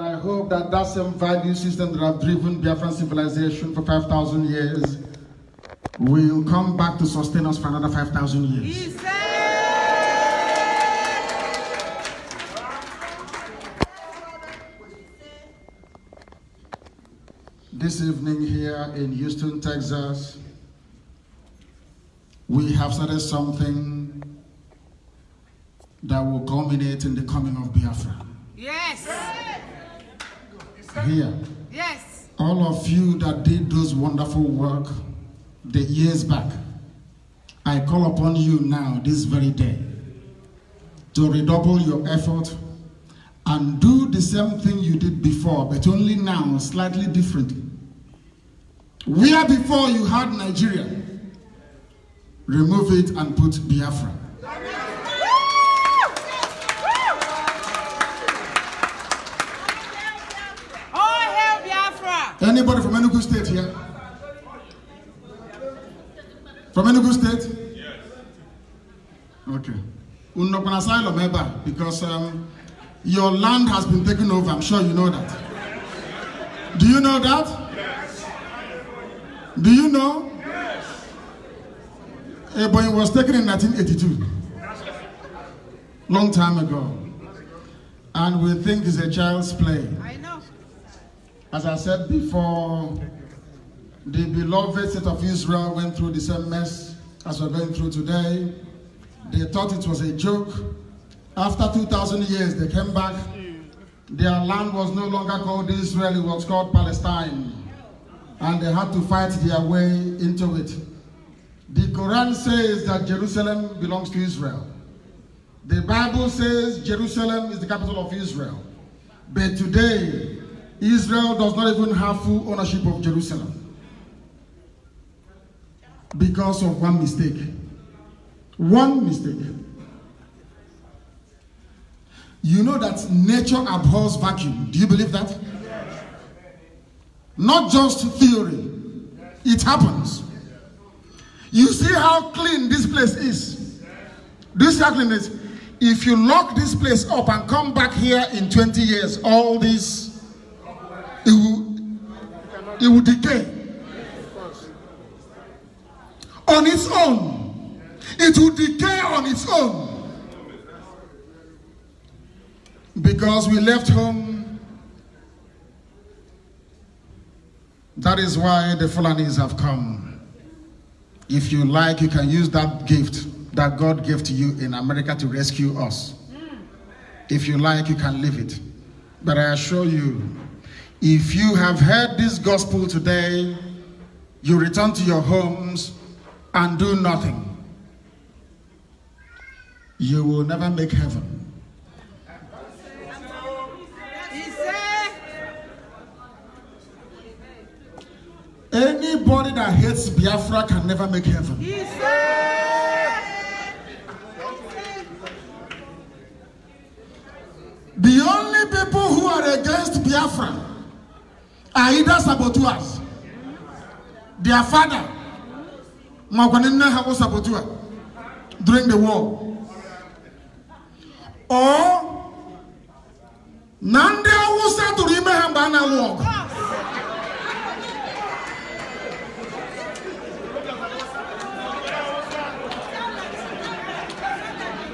And I hope that that same value system that have driven Biafran civilization for 5,000 years will come back to sustain us for another 5,000 years. This evening here in Houston, Texas, we have started something that will culminate in the coming of Biafra. Yes! here. Yes. All of you that did those wonderful work the years back, I call upon you now, this very day, to redouble your effort and do the same thing you did before, but only now, slightly differently. Where before you had Nigeria, remove it and put Biafra. Anybody from Enugu State here? From Enugu State? Yes. Okay. Unokun Asylum Eba, because um, your land has been taken over. I'm sure you know that. Do you know that? Yes. Do you know? Yes. Ebonyi was taken in 1982. Long time ago. And we think it's a child's play. I know. As I said before, the beloved state of Israel went through the same mess as we're going through today. They thought it was a joke. After 2,000 years, they came back. Their land was no longer called Israel, it was called Palestine. And they had to fight their way into it. The Quran says that Jerusalem belongs to Israel. The Bible says Jerusalem is the capital of Israel. But today, Israel does not even have full ownership of Jerusalem because of one mistake. One mistake. You know that nature abhors vacuum. Do you believe that? Not just theory. It happens. You see how clean this place is. This how clean If you lock this place up and come back here in 20 years, all these it will it will decay on its own it will decay on its own because we left home that is why the Fulanis have come if you like you can use that gift that God gave to you in America to rescue us if you like you can leave it but I assure you if you have heard this gospel today, you return to your homes and do nothing. You will never make heaven. Anybody that hates Biafra can never make heaven. The only people who are against Biafra are either saboteurs. Their father, Magwanina Habo saboteur, during the war. Or, Nande Awusa to remember na walk.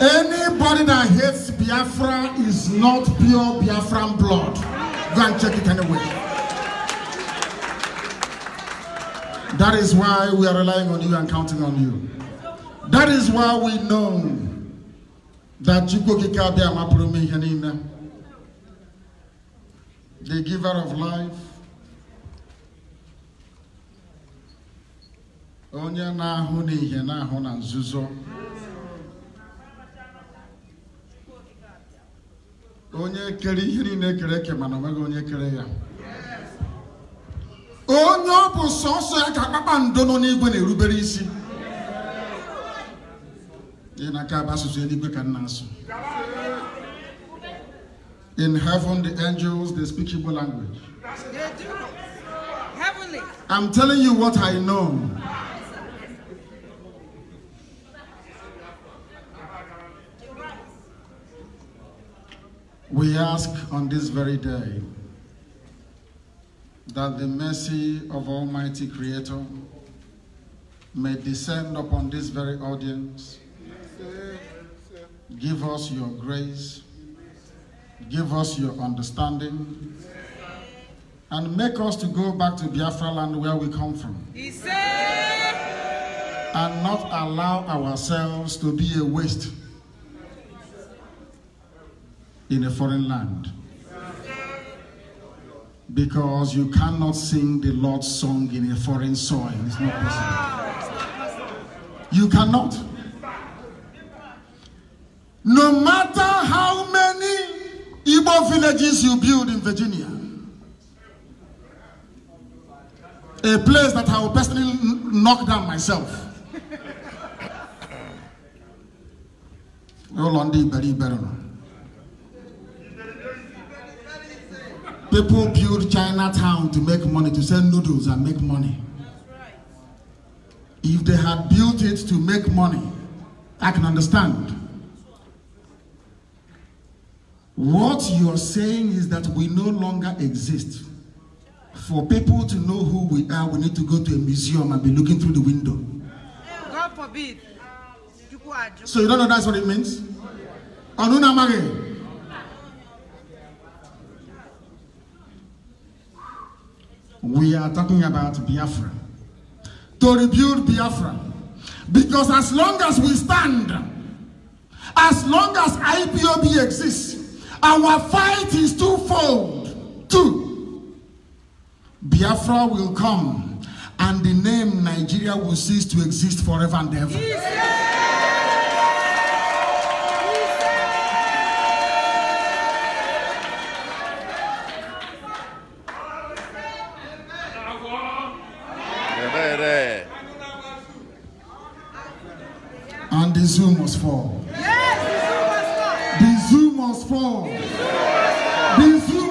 Anybody that hates Biafra is not pure Biafran blood. Go and check it anyway. That is why we are relying on you and counting on you. That is why we know that the giver of life, onye na-ahụ n'ihe na-ahụ na nzuzo onye kere ihe niile kere eke mana onweghị onye kere ya onye ọ bụ sọsọ ya ka kpakpando nọ n'igwe na-erubere isi ị na-aka bụ asụsụ eluigwe ka nna asụ in heaven the angels they speak Igbo language I'm telling you what I know we ask on this very day that the mercy of Almighty Creator may descend upon this very audience. Give us your grace. Give us your understanding. And make us to go back to Biafra land where we come from. And not allow ourselves to be a waste in a foreign land because you cannot sing the Lord's song in a foreign soil. It's not possible. You cannot. No matter how many Igbo villages you build in Virginia, a place that I will personally knock down myself. Roll on the People build Chinatown to make money, to sell noodles and make money. Right. If they had built it to make money, I can understand. What you're saying is that we no longer exist. For people to know who we are, we need to go to a museum and be looking through the window. God forbid. So you don't know that's what it means? Onunamage. we are talking about Biafra. To rebuild Biafra. Because as long as we stand, as long as IPOB exists, our fight is twofold. Two, Biafra will come and the name Nigeria will cease to exist forever and ever. The zoo must fall. Yes, the zoo must fall. The zoo must fall. The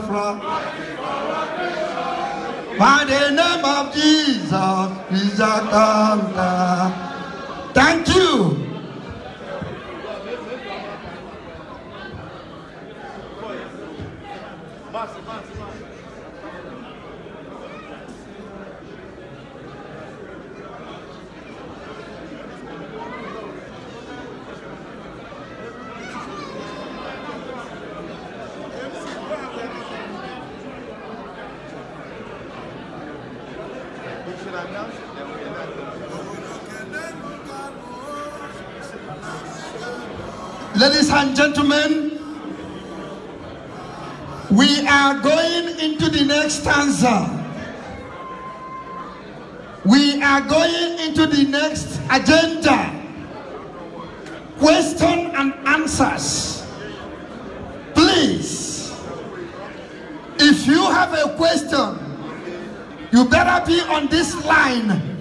from gentlemen, we are going into the next stanza. We are going into the next agenda. Question and answers. Please, if you have a question, you better be on this line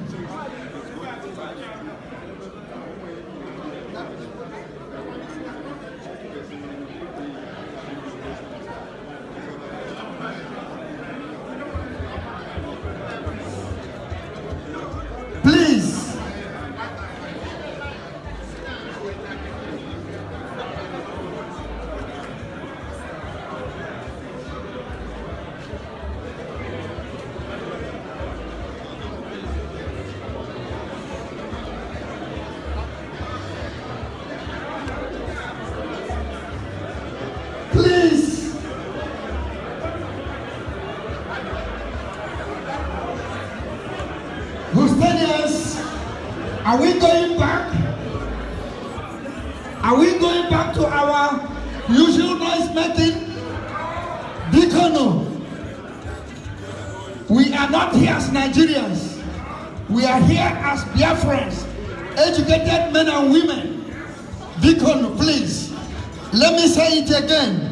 usual noise making, deacon. We are not here as Nigerians. We are here as Biafrans, educated men and women. Deacon, please, let me say it again.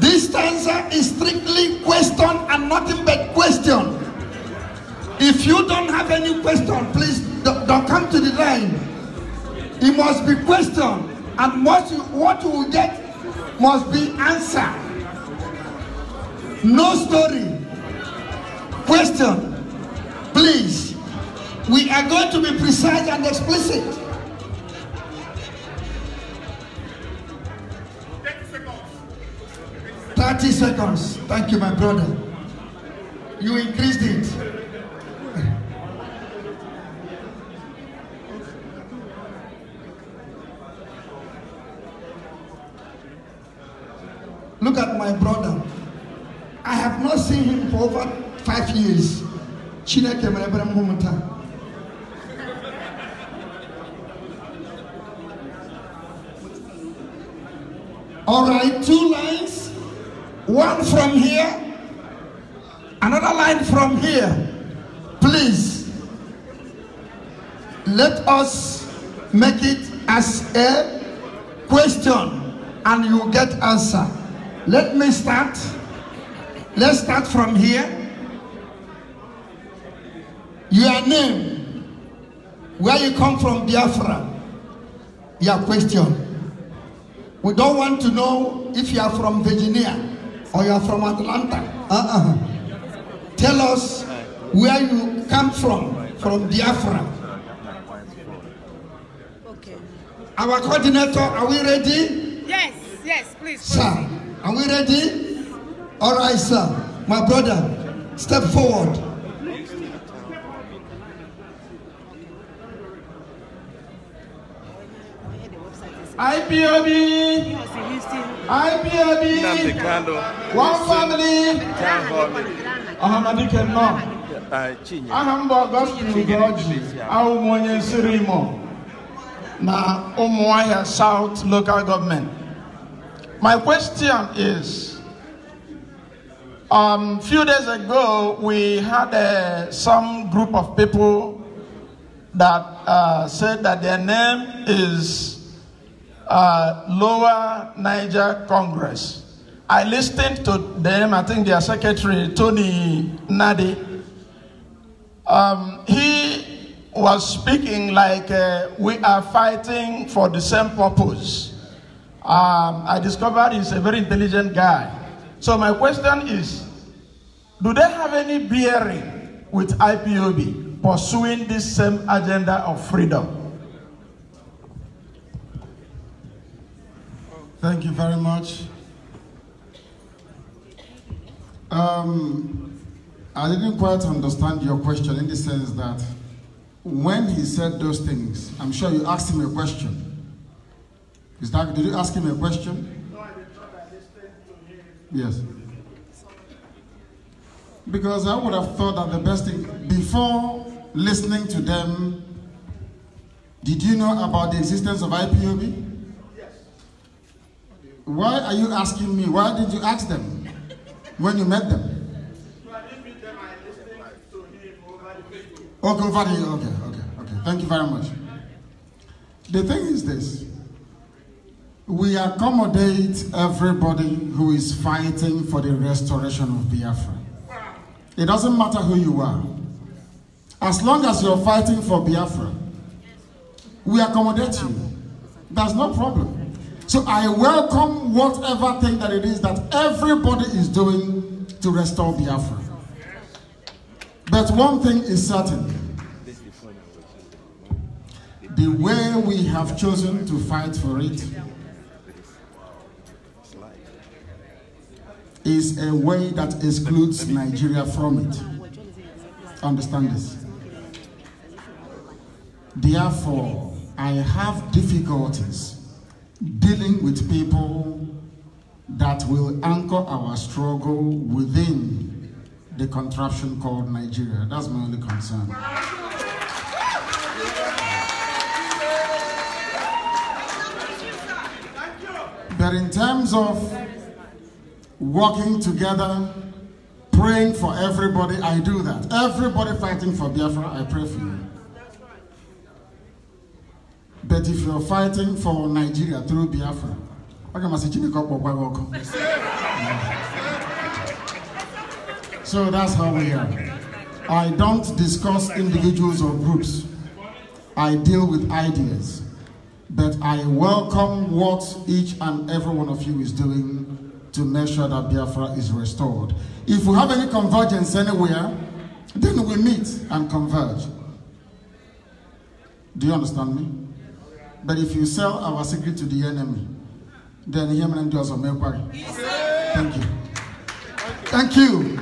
This stanza is strictly question and nothing but question. If you don't have any question, please don't come to the line. It must be question. and what you, what you get must be answer. No story. Question, please. We are going to be precise and explicit. Thirty seconds. Thank you, my brother. You increased it. Look at my brother. I have not seen him for over five years. Chineke mere m All right, two lines. One from here, another line from here. Please, let us make it as a question and you get answer. Let me start. Let's start from here. Your name, where you come from, Biafra, your question. We don't want to know if you are from Virginia or you are from Atlanta. Uh-uh. Tell us where you come from, from Biafra. Okay. Our coordinator, are we ready? Yes, yes, please. Sir, Are we ready? All right, sir. My brother, step forward. IPOB, IPOB, one family, Ahamadi Kenma, Ahamba Gospel to Godji, Aumwanye Sirimo, na Umuaya South Local Government. My question is, a um, few days ago, we had uh, some group of people that uh, said that their name is uh, Lower Niger Congress. I listened to them, I think their secretary, Tony Nadi. Um, he was speaking like uh, we are fighting for the same purpose um, I discovered he's a very intelligent guy. So my question is, do they have any bearing with IPOB pursuing this same agenda of freedom? Thank you very much. Um, I didn't quite understand your question in the sense that when he said those things, I'm sure you asked him a question. Is that, did you ask him a question? Yes. Because I would have thought that the best thing, before listening to them, did you know about the existence of IPOB? Yes. Why are you asking me? Why did you ask them when you met them? Okay, okay, okay, okay. Thank you very much. The thing is this. We accommodate everybody who is fighting for the restoration of Biafra. It doesn't matter who you are. As long as you're fighting for Biafra, we accommodate you. That's no problem. So I welcome whatever thing that it is that everybody is doing to restore Biafra. But one thing is certain. The way we have chosen to fight for it is a way that excludes Nigeria from it. Understand this? Therefore, I have difficulties dealing with people that will anchor our struggle within the contraption called Nigeria. That's my only concern. But in terms of working together, praying for everybody. I do that. Everybody fighting for Biafra, I pray for you. But if you're fighting for Nigeria through Biafra, I can message you So that's how we are. I don't discuss individuals or groups. I deal with ideas. But I welcome what each and every one of you is doing to make sure that Biafra is restored. If we have any convergence anywhere, then we meet and converge. Do you understand me? But if you sell our secret to the enemy, then him and us will make worry. Thank you. Thank you.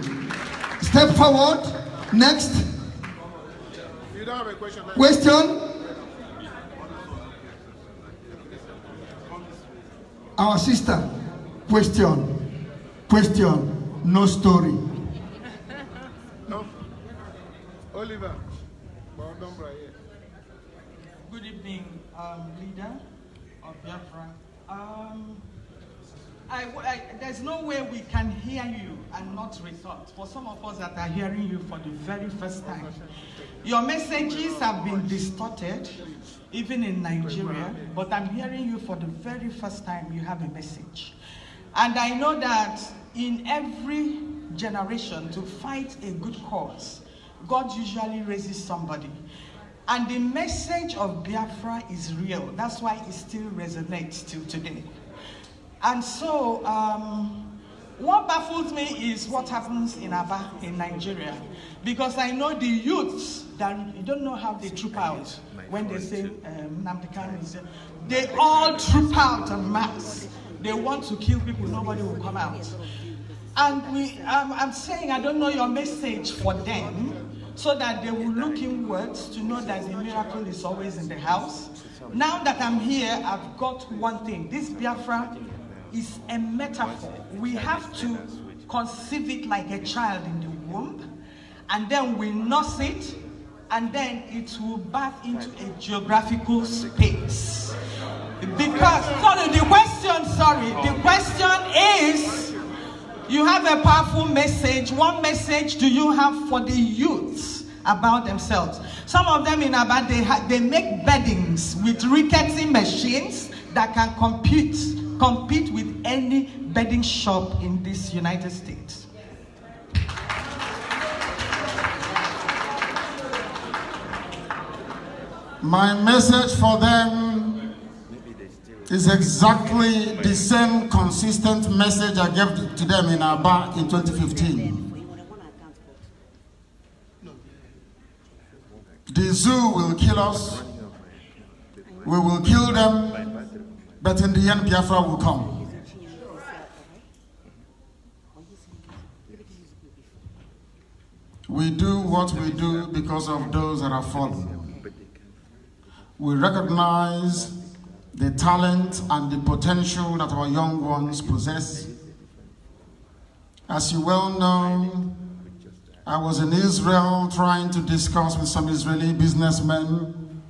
Step forward. Next. You don't have a question. Question? Our sister. Question, question, no story. No. Oliver, Good evening, um, leader of Biafra. Um, I, I, there's no way we can hear you and not resort. For some of us that are hearing you for the very first time, your messages have been distorted, even in Nigeria, but I'm hearing you for the very first time. You have a message. And I know that in every generation to fight a good cause, God usually raises somebody. And the message of Biafra is real. That's why it still resonates till today. And so, um, what baffles me is what happens in Aba, in Nigeria. Because I know the youths that you don't know how they troop out when they say um, Namdekan is. They all troop out en masse they want to kill people, nobody will come out. And we, I'm saying, I don't know your message for them, so that they will look inwards to know that the miracle is always in the house. Now that I'm here, I've got one thing. This Biafra is a metaphor. We have to conceive it like a child in the womb, and then we nurse it, and then it will birth into a geographical space. Because, sorry, the question, sorry, the question is, you have a powerful message. What message do you have for the youths about themselves? Some of them in Abad, they, they make beddings with rickety machines that can compete, compete with any bedding shop in this United States. My message for them it's exactly the same consistent message I gave to them in Aba in 2015. The zoo will kill us, we will kill them, but in the end Biafra will come. We do what we do because of those that are fallen. We recognize the talent and the potential that our young ones possess. As you well know, I was in Israel trying to discuss with some Israeli businessmen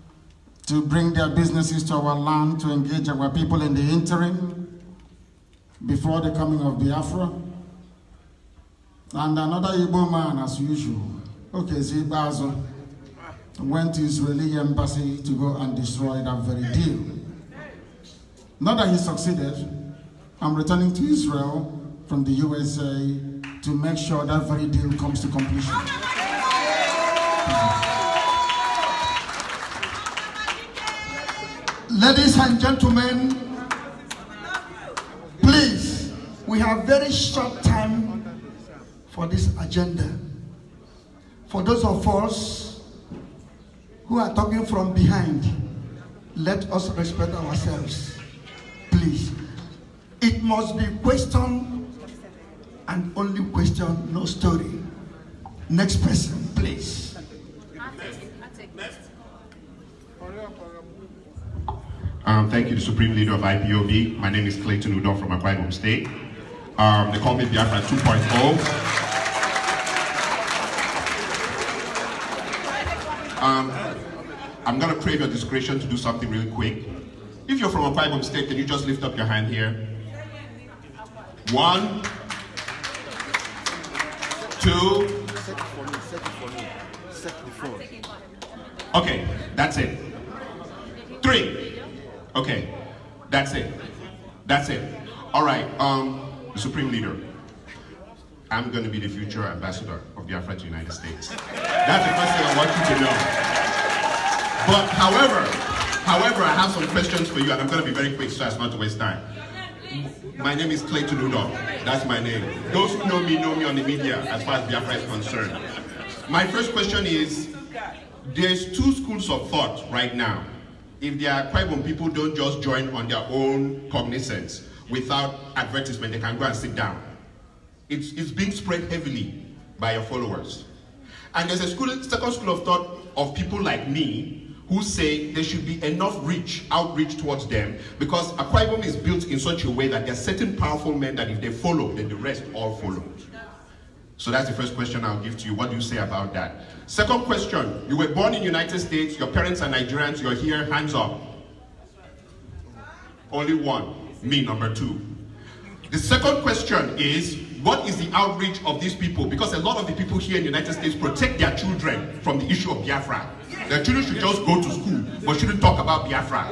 to bring their businesses to our land to engage our people in the interim before the coming of Biafra. And another Igbo man, as usual, okay, Zibazo, went to Israeli embassy to go and destroy that very deal. Now that he succeeded, I'm returning to Israel from the USA to make sure that very deal comes to completion. Ladies and gentlemen, please, we have very short time for this agenda. For those of us who are talking from behind, let us respect ourselves. Please. It must be question and only question, no story. Next person, please. Um, thank you, the Supreme Leader of IPOB. My name is Clayton Udon from Akwa Ibom State. Um, they call me Biafra 2.0. Um, I'm going to crave your discretion to do something really quick. If you're from a Ibom State, can you just lift up your hand here? One, two. Okay, that's it. Three. Okay, that's it. That's it. All right, um, Supreme Leader. I'm going to be the future ambassador of the Afro United States. That's the first thing I want you to know. But however, However, I have some questions for you, and I'm going to be very quick so as not to waste time. My name is Clayton Udom. That's my name. Those who know me know me on the media as far as Biafra is concerned. My first question is, there's two schools of thought right now. If there are Akwaibom people don't just join on their own cognizance without advertisement, they can go and sit down. It's, it's being spread heavily by your followers. And there's a school, second school of thought of people like me who say there should be enough reach, outreach towards them, because Akwa is built in such a way that there are certain powerful men that if they follow, then the rest all follow. So that's the first question I'll give to you. What do you say about that? Second question, you were born in United States, your parents are Nigerians, you're here, hands up. Only one, me number two. The second question is, what is the outreach of these people? Because a lot of the people here in the United States protect their children from the issue of Biafra. The children should just go to school, but shouldn't talk about Biafra.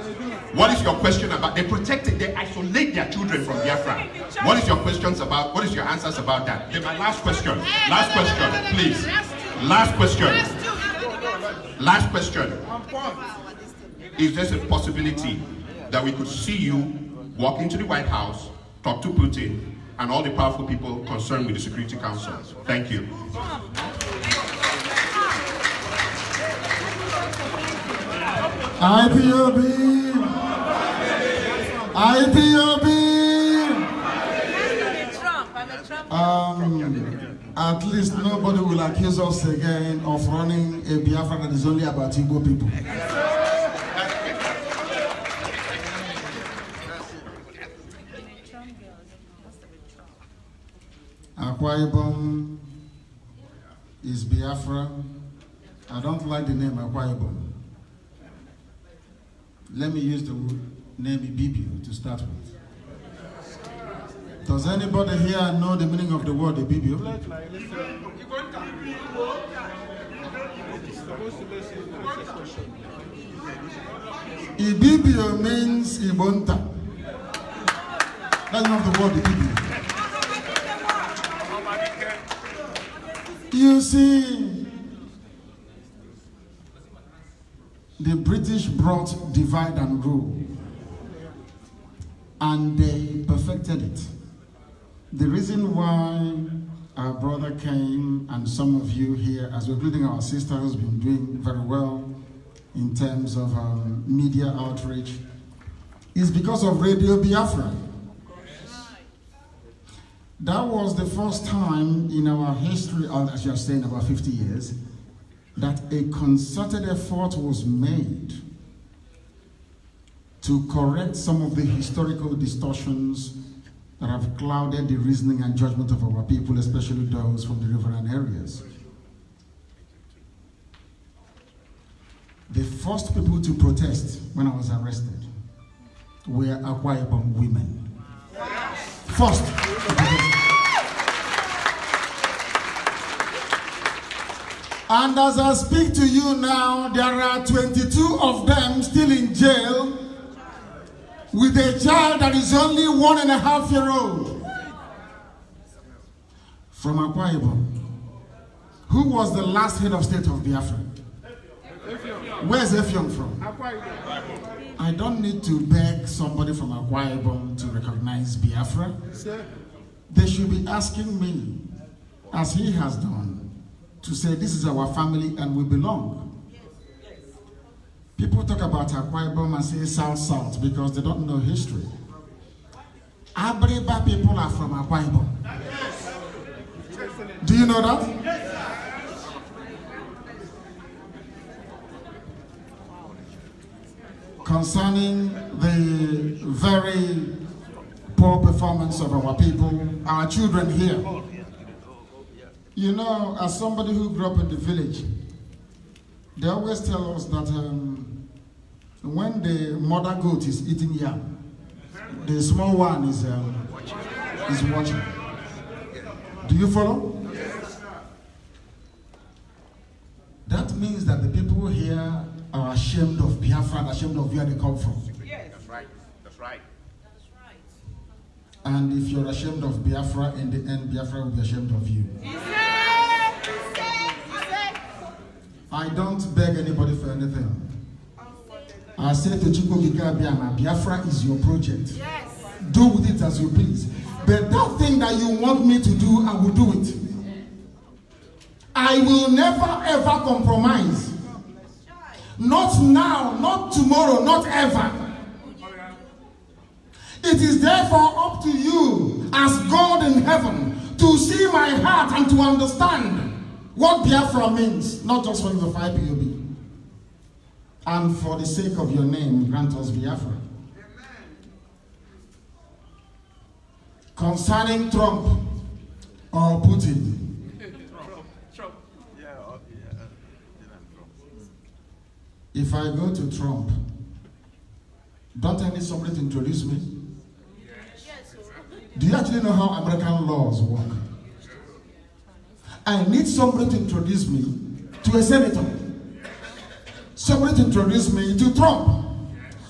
What is your question about? They protect it, they isolate their children from Biafra. What is your questions about? What is your answers about that? Okay, my last question. Last question, please. Last question. Last question. Is there a possibility that we could see you walk into the White House, talk to Putin, and all the powerful people concerned with the Security Council? Thank you. IPOB IPOB um, at least nobody will accuse us again of running a Biafra that is only about Igbo people. Akwa Ibom is Biafra. I don't like the name Akwa Ibom. Let me use the name Ibibio to start with. Does anybody here know the meaning of the word Ibibio? Ibibio means Ibonta. That's not the word Ibibio. You see, The British brought divide and rule, and they perfected it. The reason why our brother came and some of you here, as we're including our sister who's been doing very well in terms of um, media outreach, is because of Radio Biafra. That was the first time in our history, as you're saying, about 50 years, that a concerted effort was made to correct some of the historical distortions that have clouded the reasoning and judgment of our people, especially those from the riverine areas. The first people to protest when I was arrested were Akwa Ibom women. First. And as I speak to you now, there are 22 of them still in jail with a child that is only one and a half year old from Akwa Ibom. Who was the last head of state of Biafra? Where's Efiong from? I don't need to beg somebody from Akwa Ibom to recognize Biafra. They should be asking me, as he has done, to say this is our family and we belong. People talk about Akwa and say South South because they don't know history. Abriba people are from Akwa Ibom. Do you know that? Concerning the very poor performance of our people, our children here, You know, as somebody who grew up in the village, they always tell us that um, when the mother goat is eating yam, the small one is, um, is watching. Do you follow? That means that the people here are ashamed of Biafra ashamed of where they come from. And if you're ashamed of Biafra, in the end, Biafra will be ashamed of you. I don't beg anybody for anything. I said to Chukwukika Biama, Biafra is your project. Yes. Do with it as you please. But that thing that you want me to do, I will do it. I will never ever compromise. Not now, not tomorrow, not ever. It is therefore up to you, as God in heaven, to see my heart and to understand what Biafra means, not just for the 5 POB. And for the sake of your name, grant us Biafra. Concerning Trump or Putin, if I go to Trump, don't I need somebody to introduce me? Do you actually know how American laws work? I need somebody to introduce me to a senator. Somebody to introduce me to Trump.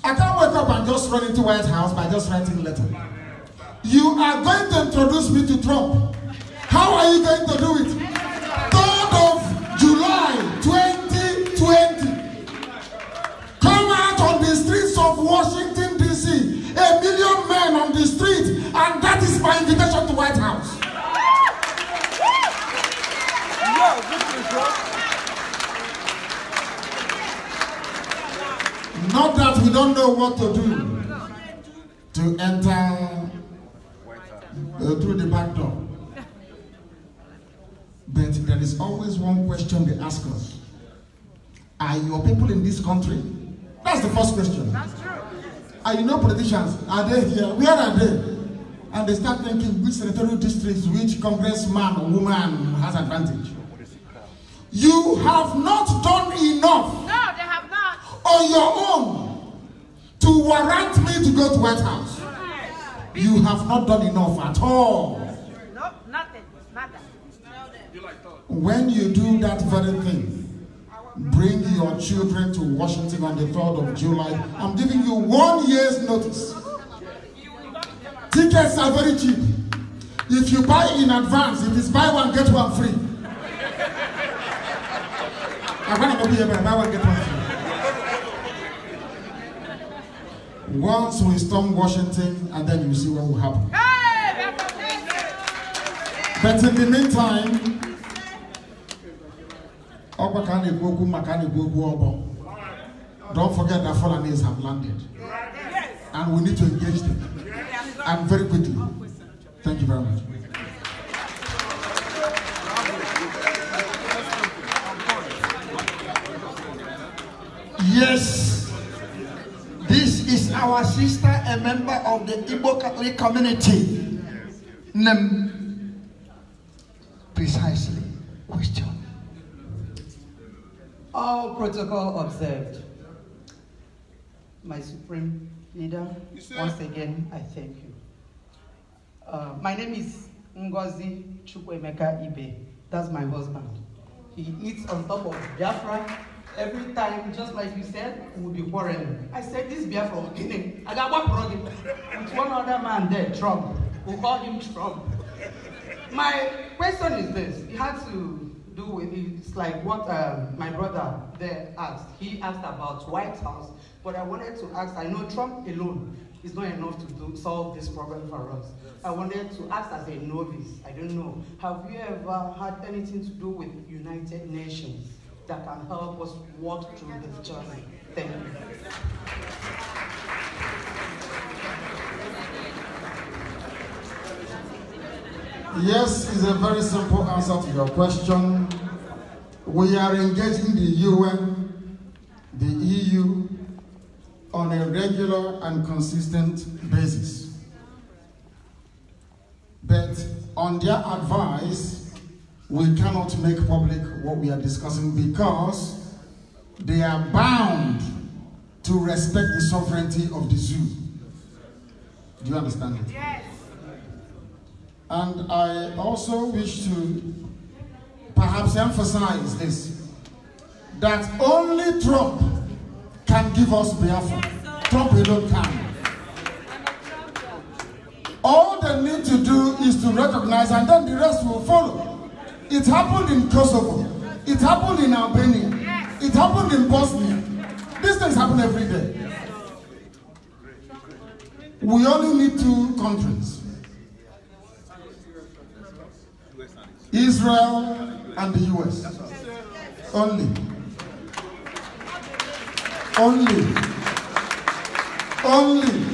I can't wake up and just run into White House by just writing a letter. You are going to introduce me to Trump. How are you going to do it? my invitation to White House. Not that we don't know what to do to enter uh, through the back door. But there is always one question they ask us. Are your people in this country? That's the first question. That's true. Are you not politicians? Are they here? Where are they? and they start thinking which senatorial districts, which congressman or woman has advantage. You have not done enough. No, they have not. On your own to warrant me to go to White House. Yes. You have not done enough at all. No, nothing. nada. When you do that very thing, bring your children to Washington on the 3rd of July. I'm giving you one year's notice. Tickets are very cheap. If you buy in advance, if it's buy one, get one free. I want to be here, buy one, get one free. Once we storm Washington, and then you see what will happen. But in the meantime, Don't forget that Fulanis have landed. And we need to engage them. I'm very grateful. Thank you very much. Yes, this is our sister, a member of the Igbo Catholic community. Nem precisely question. All protocol observed. My supreme leader, once again, I thank you. Uh, my name is Ngozi Chukwemeka Ibe. That's my husband. He eats on top of Biafra. Every time, just like you said, we'll be quarreling. I said, this Biafra, okay? I got one brother with one other man there, Trump. We'll call him Trump. My question is this. It had to do with, it's like what um, my brother there asked. He asked about White House, but I wanted to ask, I know Trump alone is not enough to do, solve this problem for us. I wanted to ask as a novice, I don't know, have you ever had anything to do with United Nations that can help us walk through this journey? Thank you. Yes, is a very simple answer to your question. We are engaging the UN, the EU, on a regular and consistent basis. But on their advice, we cannot make public what we are discussing because they are bound to respect the sovereignty of the zoo. Do you understand it? Yes. And I also wish to perhaps emphasize this, that only Trump can give us Biafra. Yes, Trump alone can. It happened in Kosovo. It happened in Albania. It happened in Bosnia. These things happen every day. We only need two countries. Israel and the US. Only. Only. Only.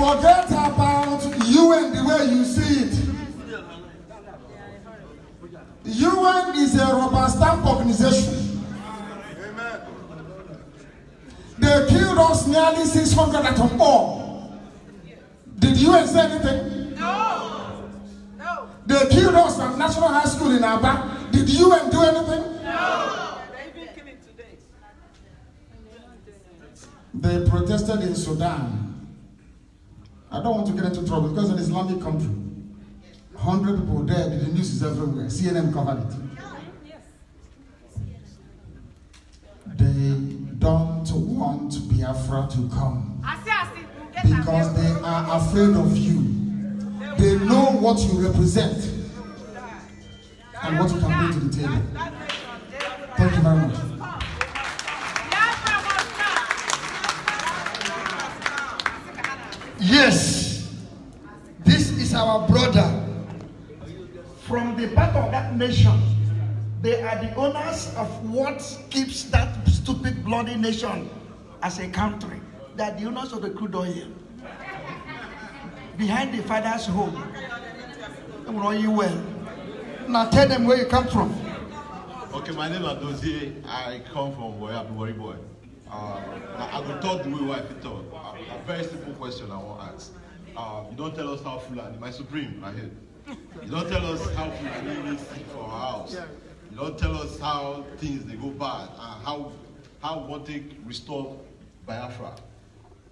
Forget about you and the way you see it. UN is a rubber stamp organization. Amen. They killed us nearly 600 at atom bomb. Did UN say anything? No. No. They killed us at National High School in Aba. Did UN do anything? No. They protested in Sudan. I don't want to get into trouble because it's an Islamic country. 100 people dead. The news is everywhere. CNN covered it. They don't want Biafra to come because they are afraid of you. They know what you represent and what you can bring to the table. Thank you very much. Yes, this is our brother. from the back of that nation. They are the owners of what keeps that stupid bloody nation as a country. They are the owners of the crude oil. Behind the father's home. They will you well. Now tell them where you come from. Okay, my name is Adozie. I come from where I'm worry boy. Uh, I will talk the way wife talk. A, uh, a very simple question I want to ask. Uh, you don't tell us how Fulani, my supreme, I heard. You don't tell us how really live for our house. You don't tell us how things they go bad and how how what they restore Biafra.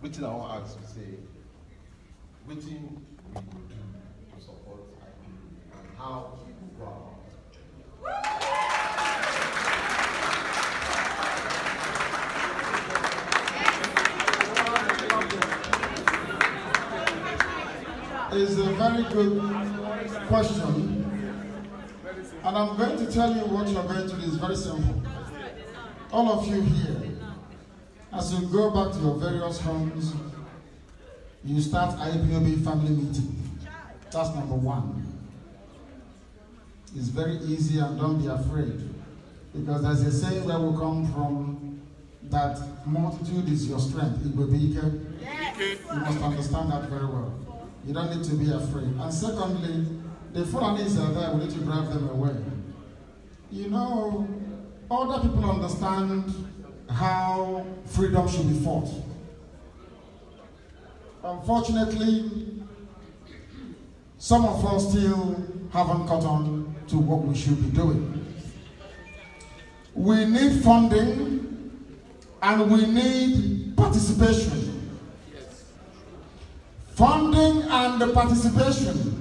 Waiting I want to ask you say, waiting we do to support and how we go about It's a very good question, and I'm going to tell you what you're going to do. It's very simple. All of you here, as you go back to your various homes, you start IPOB family meeting. That's number one. It's very easy and don't be afraid. Because there's a saying where we come from that multitude is your strength. It will be You must understand that very well. You don't need to be afraid. And secondly, the Fulanis are there, we need to drive them away. You know, other people understand how freedom should be fought. Unfortunately, some of us still haven't caught on to what we should be doing. We need funding and we need participation. Funding and participation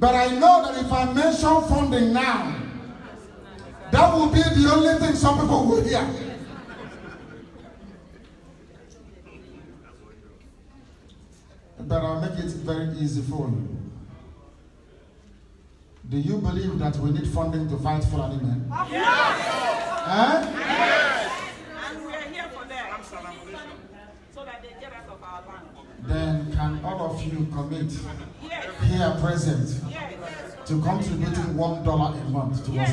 but I know that if I mention funding now, that will be the only thing some people will hear. But I'll make it very easy for you. Do you believe that we need funding to fight for an amen? Yes! Yes! And we are here for them. So that they get out of our land. Then can all of you commit here present to contributing one dollar a month to us,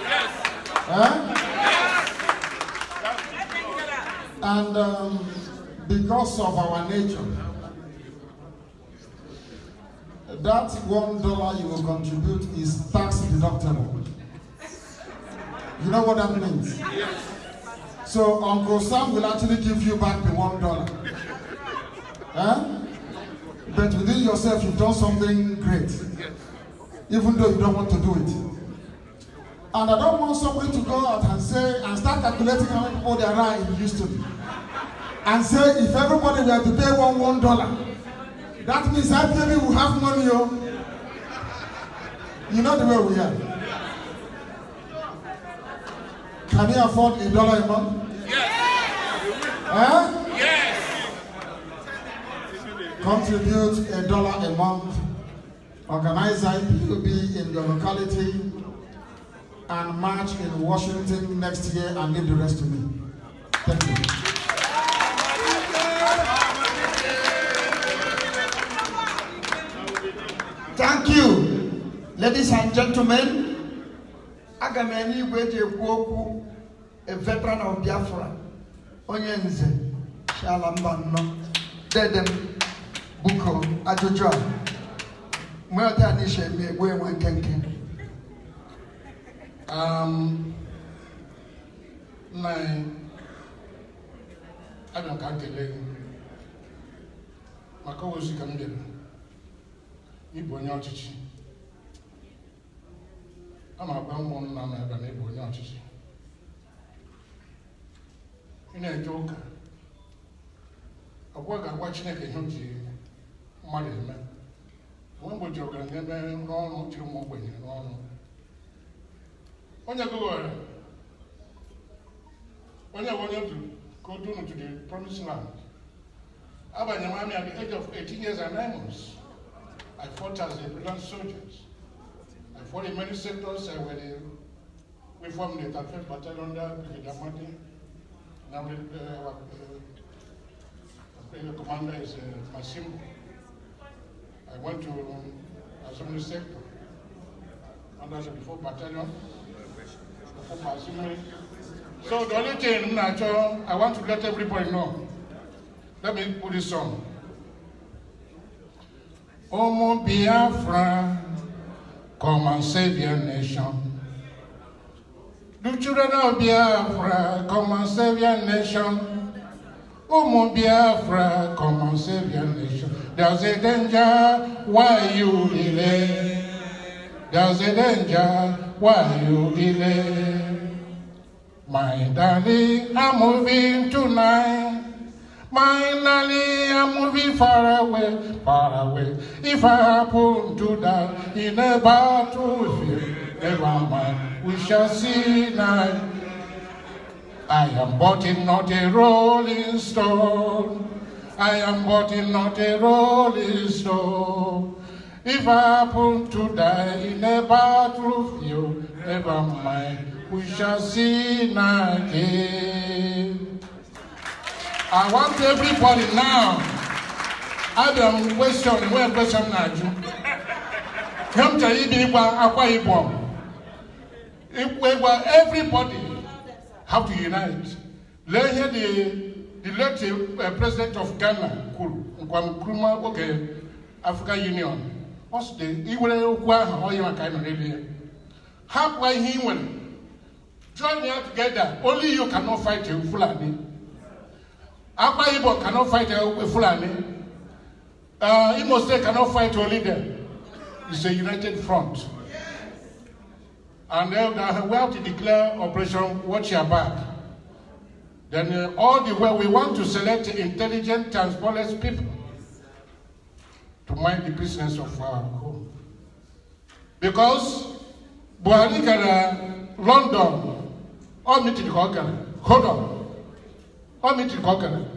Yes. And um, because of our nature, that one dollar you will contribute is tax deductible. You know what that means? Yes. So Uncle Sam will actually give you back the one dollar. But within yourself, you've done something great, even though you don't want to do it. And I don't want somebody to go out and say, and start calculating how many people there are in Houston. And say, if everybody were to pay one one dollar, that means that baby will have money, oh. You know the way we are. Can you afford a dollar a month? Yes. Eh? Yes. Contribute a dollar a month. Organize IPUB in your locality and march in Washington next year and leave the rest to me. Thank you. Thank you, ladies and gentlemen. Aga m enye a veteran of Biafra, onye nze, si ala mba biko ajụjụ um, a mgbe ọdịniche eme egbu enwe nkenke nna anyị ana ka kelee maka ozi ka m dere ịbụ onye ọchịchị a ma agba mmụọ nna m ebe na ịbụ onye ọchịchị ị na-eje ụka ọgwa ga-agwa Chineke ihe o ji mmadụ eme onwe mgbochi ọgara na ebe n'ọrụ jiri ụmụ ogbenye n'ọrụ onye gụgharị onye bụ onye du ka o dunu to the promised land abanye m amị at the age of 18 years and 9 months I fought as a brilliant soldier I fought in many sectors I were the we formed the 35th Battalion under Brigadier Mate now the uh, uh, uh commander is uh, Massimo I went to uh, Assembly Sector under the 4th Battalion, the Assembly. So the only thing I want to let everybody know, let me put this on. Ọmọ Biafra, come and save your nation. The children of Biafra, come and save your nation. my Biafra, come and save your nation. There's a danger, why you delay? There's a danger, why you delay? My darling, I'm moving tonight. My darling, I'm moving far away, far away. If I happen to die in a battlefield, never mind, we shall see night. I am but not a rolling stone. I am but not a rolling stone. If I happen to die in a battlefield, never mind, we shall see again. I want everybody now. Adam question where question Naju. Come to Ibiwa Akwa Ibom. Everybody have to unite. Let here the, the late uh, president of Ghana, Kwame Nkrumah, okay, African Union, what's the, he will how you are kind of How why he will join me together. Only you cannot fight a Fulani. Akwa Ibo cannot fight a Fulani. Uh, Imo State cannot fight only them. It's a united front and then we have to declare Operation Watch Your Back. Then uh, all the way we want to select intelligent, transparent people to mind the business of our home. Because Buhari can run down all ka ọ hold on, all mitiri the ọ Can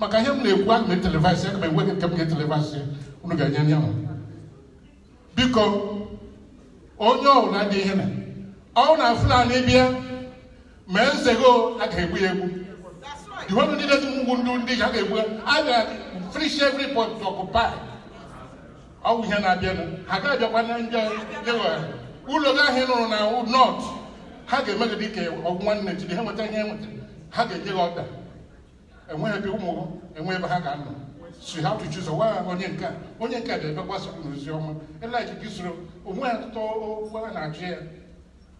Maka ihe m na I can m telivasi, aga m enweghị nke m ga not unu ga ọ na Fulani bịa mee nzego a ga-egbu ya egbu iwu ndị dị mgbu ndị ndị a ga-egbu a ga-frish every point to occupy ọwụ ihe na-abịa ha ga-abịakwa na ndị ụlọ gị ahụ nụrụ na nọt ha ga-eme gị dịka ọgụ nwanne jiri ha nweta ihe nwetara ha ga-enye gị ọda enweghị ebe ụmụ enwe ebe ha ga-anọ si ha tụchi ụzọ waa onye nke a, onye nke a ga-ebe gbasara n'ozi ọma eleki gị soro onwe ha tụtụ okwu a na-ajụ ya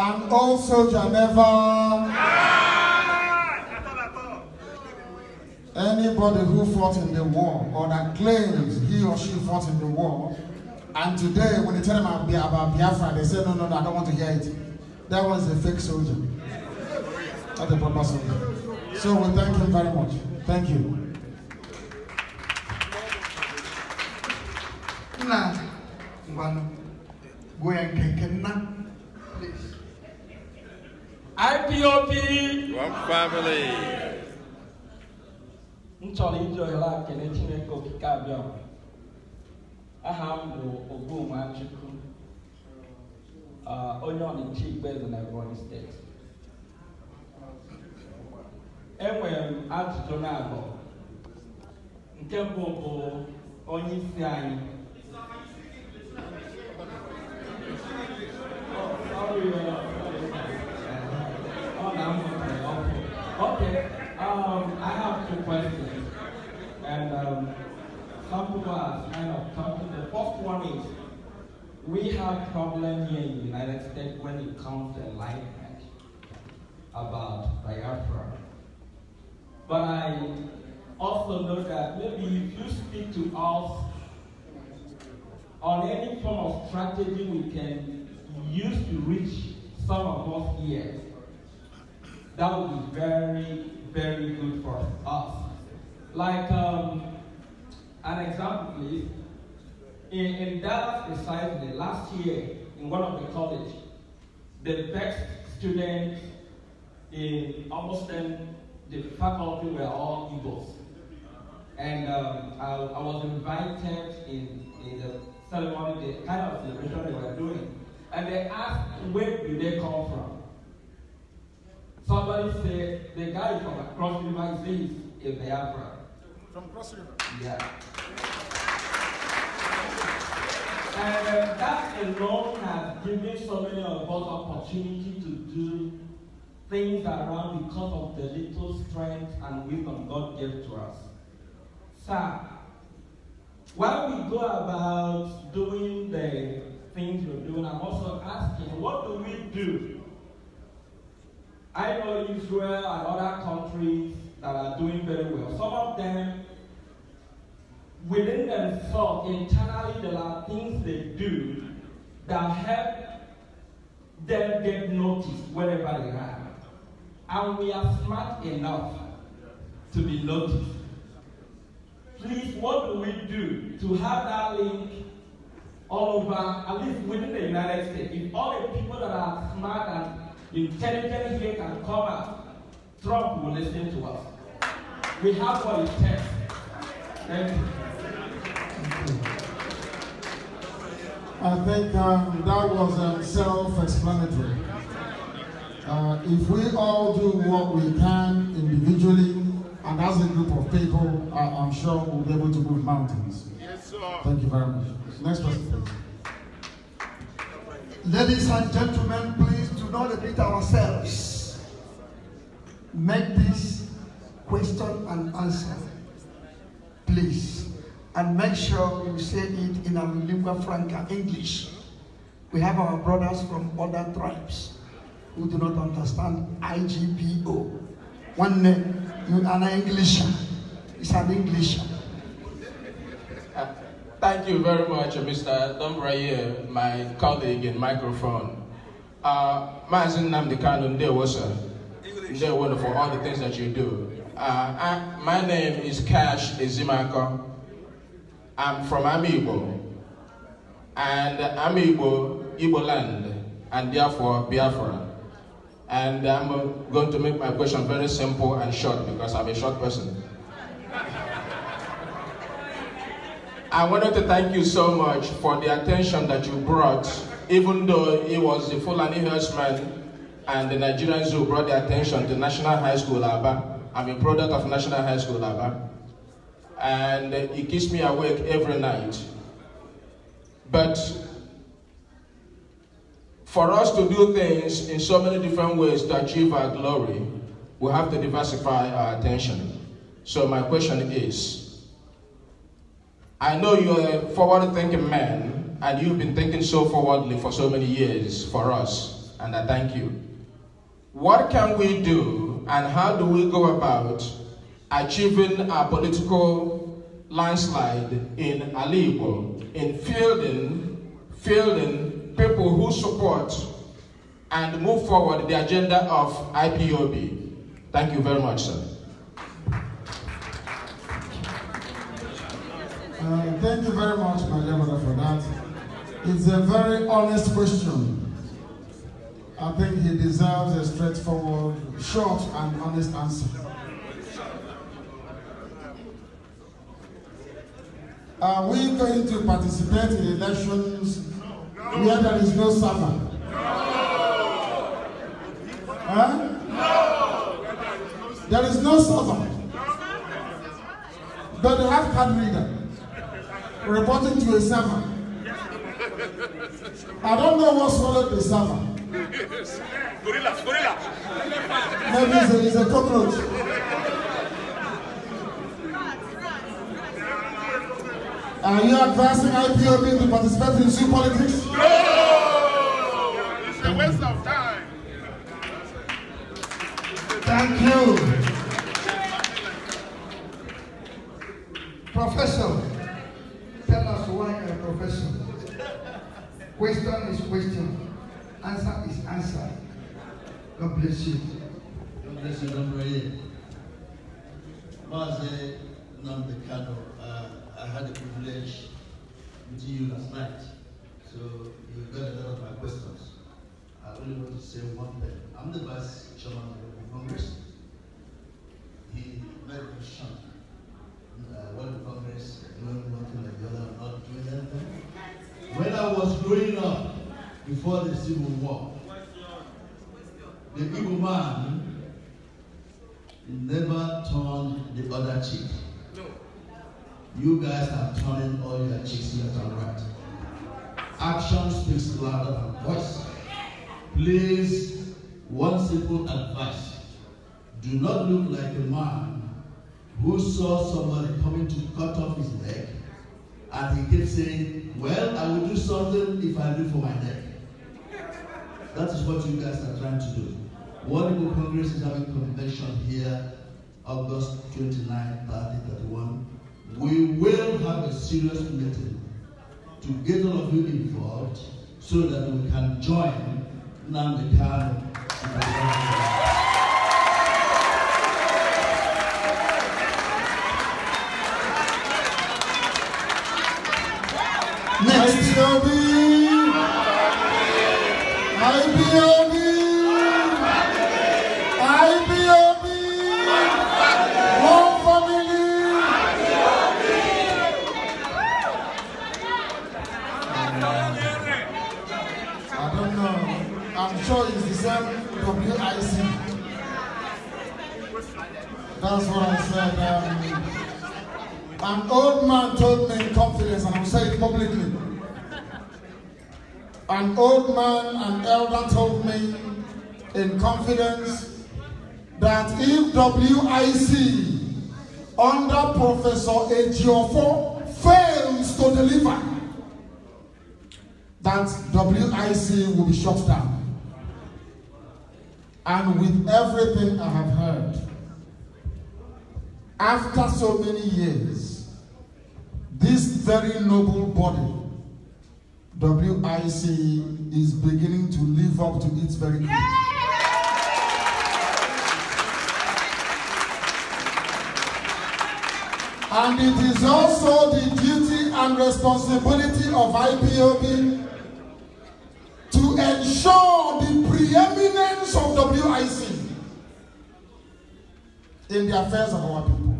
and also Geneva. Anybody who fought in the war or that claims he or she fought in the war, and today when they tell them about Biafra, they say, no, no, no, I don't want to hear it. That was a fake soldier, not a proper soldier. So we thank him very much. Thank you. Now, one, go and get him IPOB One Family m chọrọ iji ohere a kele Chineke okike abịa aha m bụ Ogbomachukwu onye ọnịcha Igboeze na Ebonyi steeti enwere m ajụjụ na abụọ nke mbụ bụ onye isi anyị Oh, sorry, uh, sorry. Oh, no, okay, okay. Okay, um, I have two questions. And um, some people are kind of talking. The first one is, we have problem here in the United States when it comes to enlightenment about Biafra. But I also know that maybe if you speak to us on any form of strategy we can use to reach some of us here, that would be very, very good for us. Like um, an example, please. In, in Dallas precisely, last year, in one of the college, the best students in almost then the faculty were all Igbos. And um, I, I, was invited in, in the ceremony, the kind of celebration they were doing. And they asked, where do they come from? Somebody said the guy from across river is in Biafra. From Cross River? Yeah. And uh, that alone has given so many of us opportunity to do things around because of the little strength and wisdom God gave to us. Sir, while we go about doing the things we're doing, I'm also asking, what do we do I know Israel and other countries that are doing very well. Some of them, within themselves, internally, there are things they do that help them get noticed wherever they are. And we are smart enough to be noticed. Please, what do we do to have that link all over, at least within the United States? If all the people that are smart and Intelligence here can come out. Trump will listen to us. We have what it takes. Thank you. I think um, that was um, self-explanatory. Uh, if we all do what we can individually and as a group of people, I, I'm sure we'll be able to move mountains. Yes, sir. Thank you very much. Next person, Ladies and gentlemen, please do not admit ourselves. Make this question and answer, please. And make sure you say it in a lingua franca, English. We have our brothers from other tribes who do not understand IGPO. One name, you are an Englisher. It's an English. Thank you very much, Mr. Dombraye, my colleague in microphone. Uh, Maazị Nnamdi Kanu, ndewo sir. Ndewo for all the things that you do. Uh, I, my name is Cash Ezimako. I'm from Amiibo. And Amiibo, Igbo land, and therefore Biafra. And I'm going to make my question very simple and short because I'm a short person. I wanted to thank you so much for the attention that you brought even though he was a Fulani herdsman and the Nigerians who brought their attention to National High School Aba. I'm a product of National High School Aba. And it keeps me awake every night. But for us to do things in so many different ways to achieve our glory, we have to diversify our attention. So my question is, I know you're a forward-thinking man, and you've been thinking so forwardly for so many years for us, and I thank you. What can we do, and how do we go about achieving a political landslide in Alibo, in fielding, fielding people who support and move forward the agenda of IPOB? Thank you very much, sir. Uh, thank you very much, my brother, for that. It's a very honest question. I think he deserves a straightforward, short and honest answer. Are we going to participate in elections no. where there is no server? No. Huh? No. There is no server. But they have card reader reporting to a server. I don't know what swallowed the salmon. gorilla, gorilla. Maybe it's a, it's a cockroach. Are you advising IPOB to participate in zoo politics? No! It's a waste of time. Thank you. Professor. God bless you. God bless you, Honorary. Maze Namdekano, uh, I had the privilege meeting you last night, so you got a lot of my questions. I only want to say one thing. I'm the vice chairman of the Congress. man never turned the other cheek. No. You guys are turning all your cheeks left and right. Action speaks louder than voice. Please, one simple advice. Do not look like a man who saw somebody coming to cut off his leg, and he kept saying, Well, I will do something if I do for my neck. That is what you guys are trying to do. World Legal Congress is having convention here, August 29, 30, 31. We will have a serious meeting to get all of you involved so that we can join Nnamdi Kano Next, IBOB! IBOB! WIC. That's what I said. Um, an old man told me in confidence, and I'll say it publicly. An old man, an elder told me in confidence that if WIC under Professor Ejiofo fails to deliver, that WIC will be shut down and with everything I have heard, after so many years, this very noble body, WIC, is beginning to live up to its very creed. And it is also the duty and responsibility of IPOB to ensure the preeminent friends of WIC in the affairs of our people.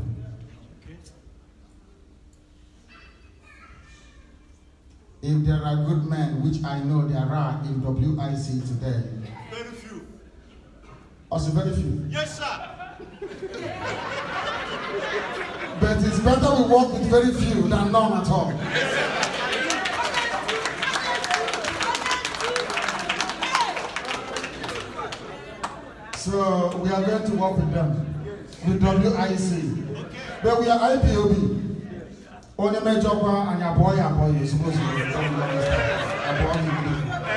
If there are good men, which I know there are in WIC today. Very few. Also very few. Yes, sir. but it's better we work with very few than none at all. Yes, sir. So we are going to work with them, yes. with WIC. Okay. But we are IPOB. Yes. Only major one and your boy, your boy, you're supposed to be.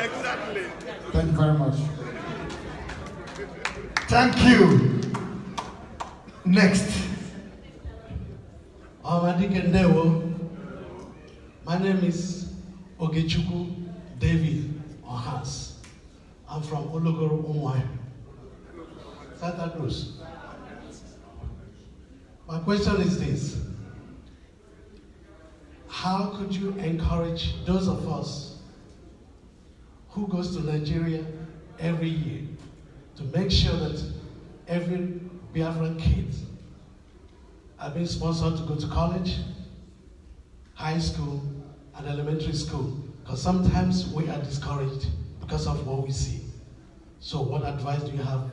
Exactly. Thank you very much. Thank you. Next. Awadikendewo. My name is Ogechuku David Ohas. I'm from Ologoro Umwai. Scatter those. My question is this. How could you encourage those of us who goes to Nigeria every year to make sure that every Biafran kid are being sponsored to go to college, high school, and elementary school? Because sometimes we are discouraged because of what we see. So what advice do you have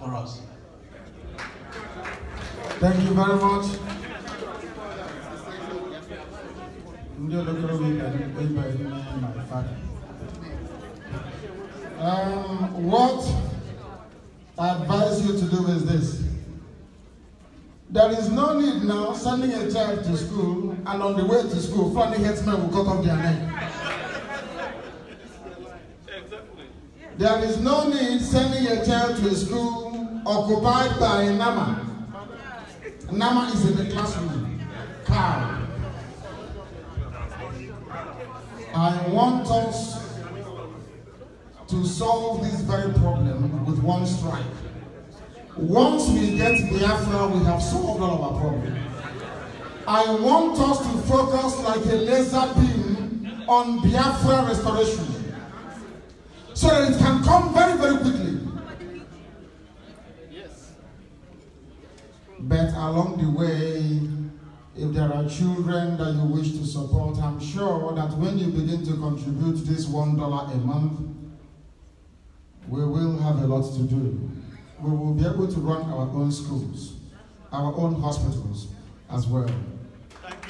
for us. Thank you very much. Um, what I advise you to do is this. There is no need now sending a child to school and on the way to school, funny headsmen will cut off their neck. There is no need sending a child to a school occupied by Nama. Nama is in the classroom. Cow. I want us to solve this very problem with one strike. Once we get Biafra, we have solved all of our problems. I want us to focus like a laser beam on Biafra restoration so that it can come very, very quickly. But along the way, if there are children that you wish to support, I'm sure that when you begin to contribute this $1 a month, we will have a lot to do. We will be able to run our own schools, our own hospitals as well. Thank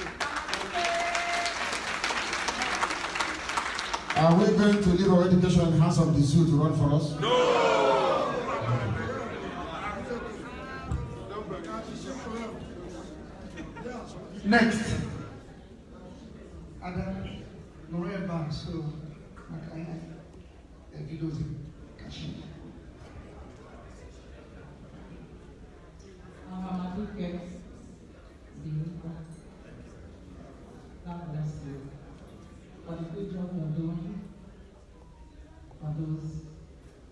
you. Are we going to leave our education in the hands of the zoo to run for us? No! Next. Adam Noreba, so Makaya, Evidozi, Kashi. Mama Duke, Binuka, God bless you for the que job you're doing for those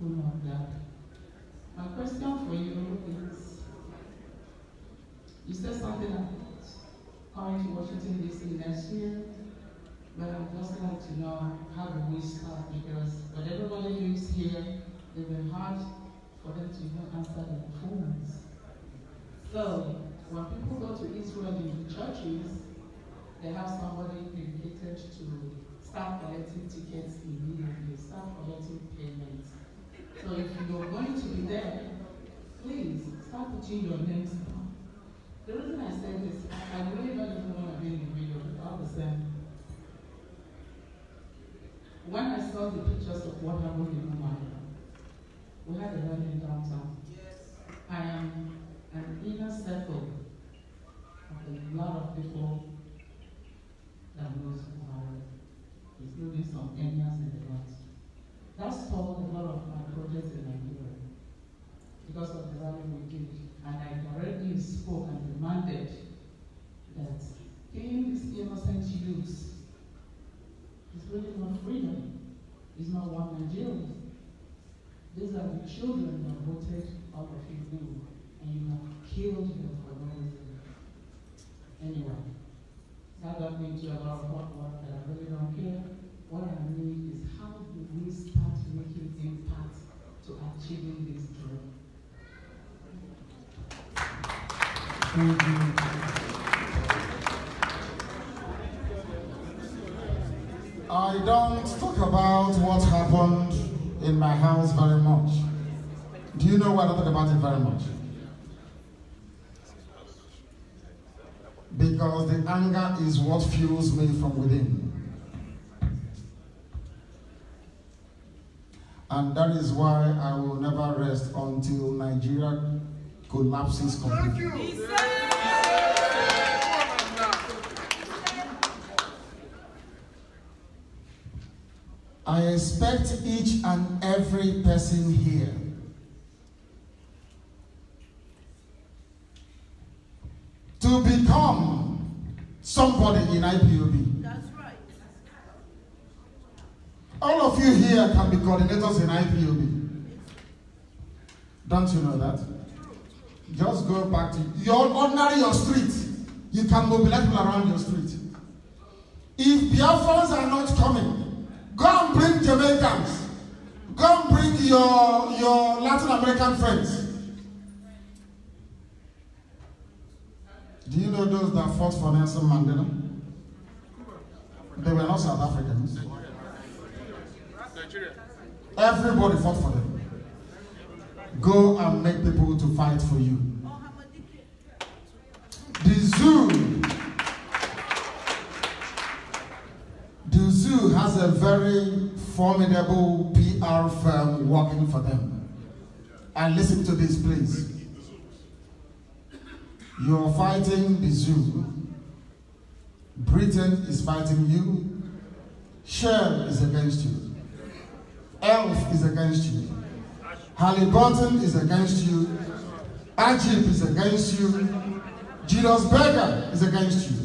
who know that. My question for you is, you said something coming to Washington DC next year, but i just like to know how do we start because whatever everybody who is here, it will be hard for them to even answer their phones. So when people go to Israel in the churches, they have somebody dedicated to start collecting tickets immediately, start collecting payments. So if you're going to be there, please start putting your names the reason I say this, I, really don't even want to be in the video, all the same. When I saw the pictures of what happened in Umar, we had a wedding downtown. Yes. I am an inner circle of a lot of people that knows Buhari, including some Kenyans in the rest. That stalled a lot of my projects in Nigeria because of the rally we did and I've already spoke and demanded that killing these innocent youths is really not freedom, it's not one Nigeria. These are the children that voted out of you knew, and you have killed them for no reason. Anyway, that got me to a lot of hard work that I really don't care. What I need is how do we start making impact to achieving this I don't talk about what happened in my house very much. Do you know why I don't talk about it very much? Because the anger is what fuels me from within. And that is why I will never rest until Nigeria collapses completely. I expect each and every person here to become somebody in IPOB. That's right. All of you here can be coordinators in IPOB. Don't you know that? Just go back to your ordinary your street. You can mobilize people around your street. If Biafrans are not coming, go and bring Jamaicans. Go and bring your, your Latin American friends. Do you know those that fought for Nelson Mandela? They were not South Africans. Everybody fought for them. Go and make people to fight for you. The zoo. The zoo has a very formidable PR firm working for them. And listen to this, please. You're fighting the zoo. Britain is fighting you. Shell is against you. Elf is against you. Halliburton is against you. Ajib is against you. Julius Berger is against you.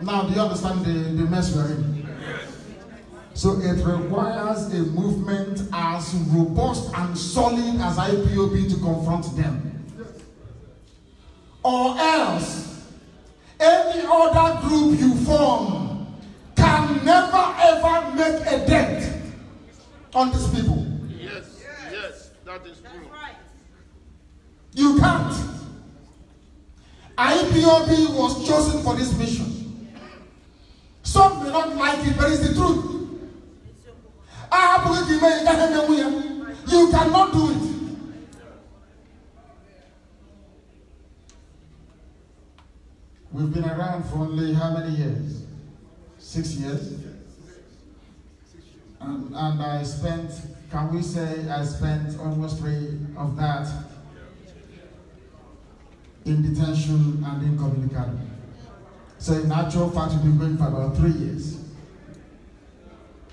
Now, do you understand the, the mess we're in? So it requires a movement as robust and solid as IPOB to confront them. Or else, any other group you form can never ever make a dent on these people. Yes, yes, that is true. right. You can't. IPOB was chosen for this mission. Some may not like it, but it's the truth. You cannot do it. We've been around for only how many years? Six years? And, and I spent, can we say, I spent almost three of that in detention and incommunicado. So in actual fact, we've been going for about three years.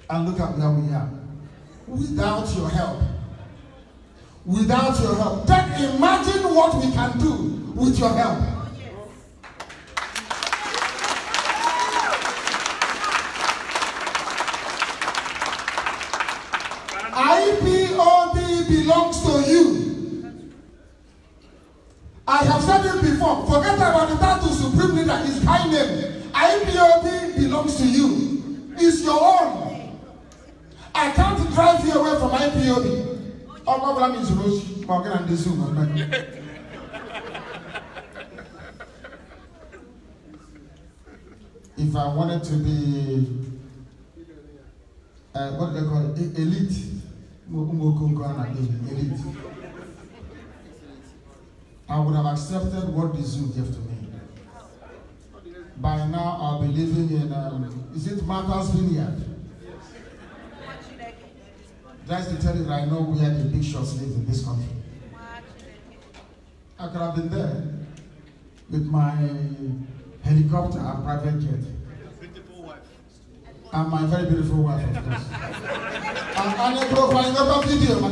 And look at where we are. Without your help, without your help, then imagine what we can do with your help. away from IPOB. Oh, my problem is Rose Morgan and the Zoom. If I wanted to be, uh, what they call it? E- elite. Elite. I would have accepted what the zoo gave to me. By now, I'll be living in, um, is it Martha's Vineyard? Just to tell you that I know where the big shots live in this country. I could have been there with my helicopter and private jet. And my very beautiful wife, of course. and, and a profile, no video, my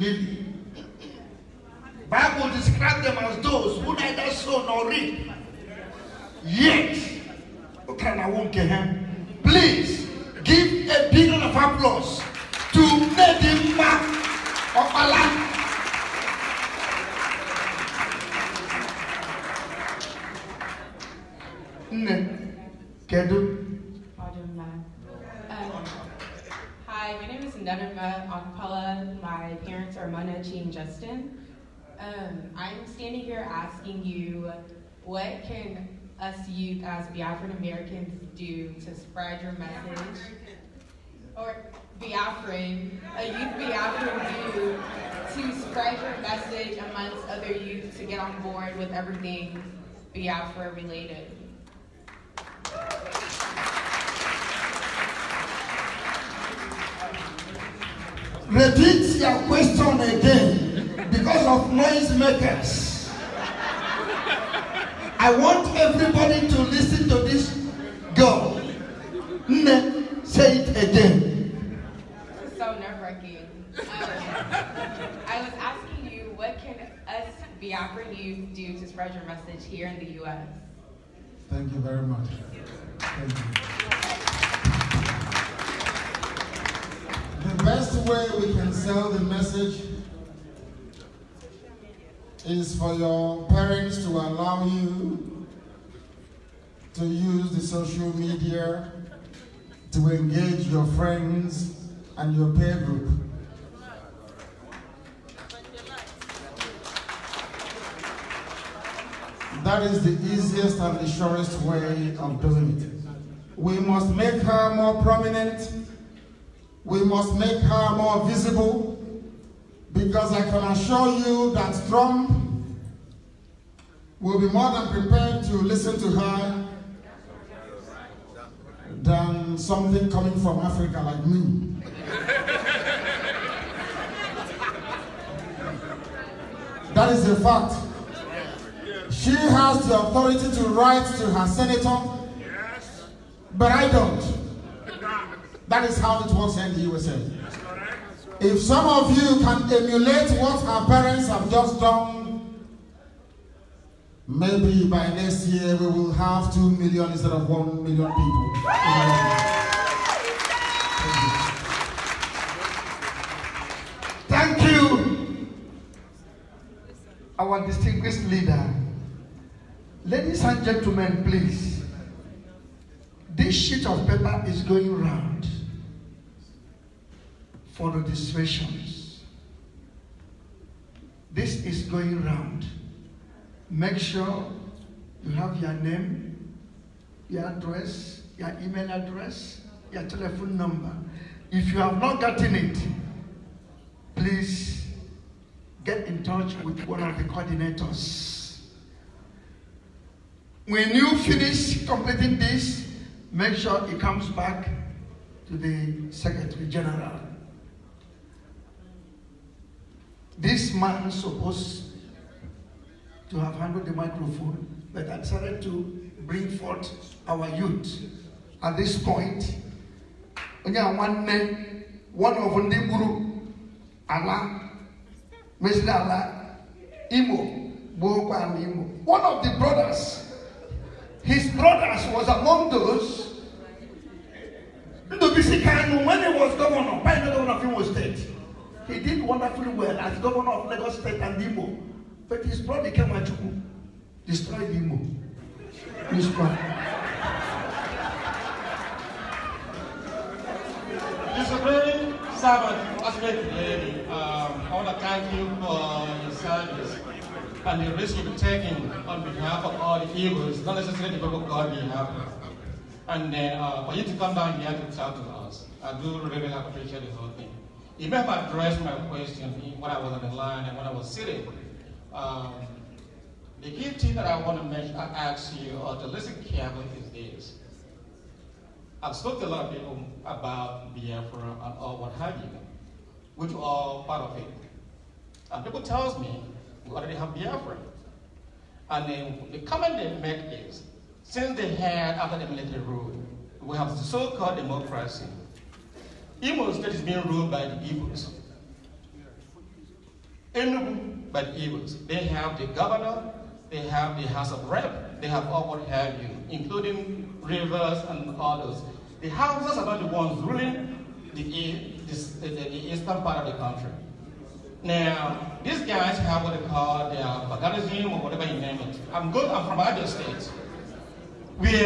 did I'm standing here asking you, what can us youth as the Americans do to spread your message? Or Biafran, a youth Biafran do to spread your message amongst other youth to get on board with everything Biafra related? Repeat your question again because of noise makers. I want everybody to listen to this girl. Ne, say it again. This is so nerve-wracking. Um, I was asking you, what can us Biafran youth do to spread your message here in the U.S.? Thank you very much. Thank you. The best way we can sell the message is for your parents to allow you to use the social media to engage your friends and your peer group. That is the easiest and the surest way of doing it. We must make her more prominent. We must make her more visible. Because I can assure you that Trump will be more than prepared to listen to her than something coming from Africa like me. that is a fact. She has the authority to write to her senator, but I don't. That is how it works in the USA. If some of you can emulate what our parents have just done, maybe by next year we will have two million instead of one million people. Thank you, our distinguished leader. Ladies and gentlemen, please, this sheet of paper is going round. for the distractions. This is going round. Make sure you have your name, your address, your email address, your telephone number. If you have not gotten it, please get in touch with one of the coordinators. When you finish completing this, make sure it comes back to the Secretary General. This man supposed to have handled the microphone, but I decided to bring forth our youth. At this point, one of the guru, Allah, mesịrị Allah, Imo Imo. One of the brothers, his brothers was among those Bisi Kanu when he was governor, by the governor of Imo State. He did wonderfully well as governor of Lagos State and Imo. But his brother came at destroyed Imo. His brother. Disciplined servant, um, I want to thank you for your service and the risk you've taken on behalf of all the Hebrews, not necessarily the people of God we have. And uh, for you to come down here to talk to us, I do really appreciate the whole thing. You remember I addressed my question when I was on the line and when I was sitting. Um, the key thing that I want to mention, I ask you or to listen carefully is this. I've spoken to a lot of people about Biafra and all what have you, which are part of it. And people tells me we already have Biafra. And then the comment they make is, since they had after the military rule, we have so-called democracy. Imo State is being ruled by the evils. Enugu by the evils. They have the governor, they have the House of Rep, they have all what have you, including rivers and others. The houses are not the ones ruling the, the, the eastern part of the country. Now, these guys have what they call their paganism or whatever you name it. I'm good, I'm from Abia State,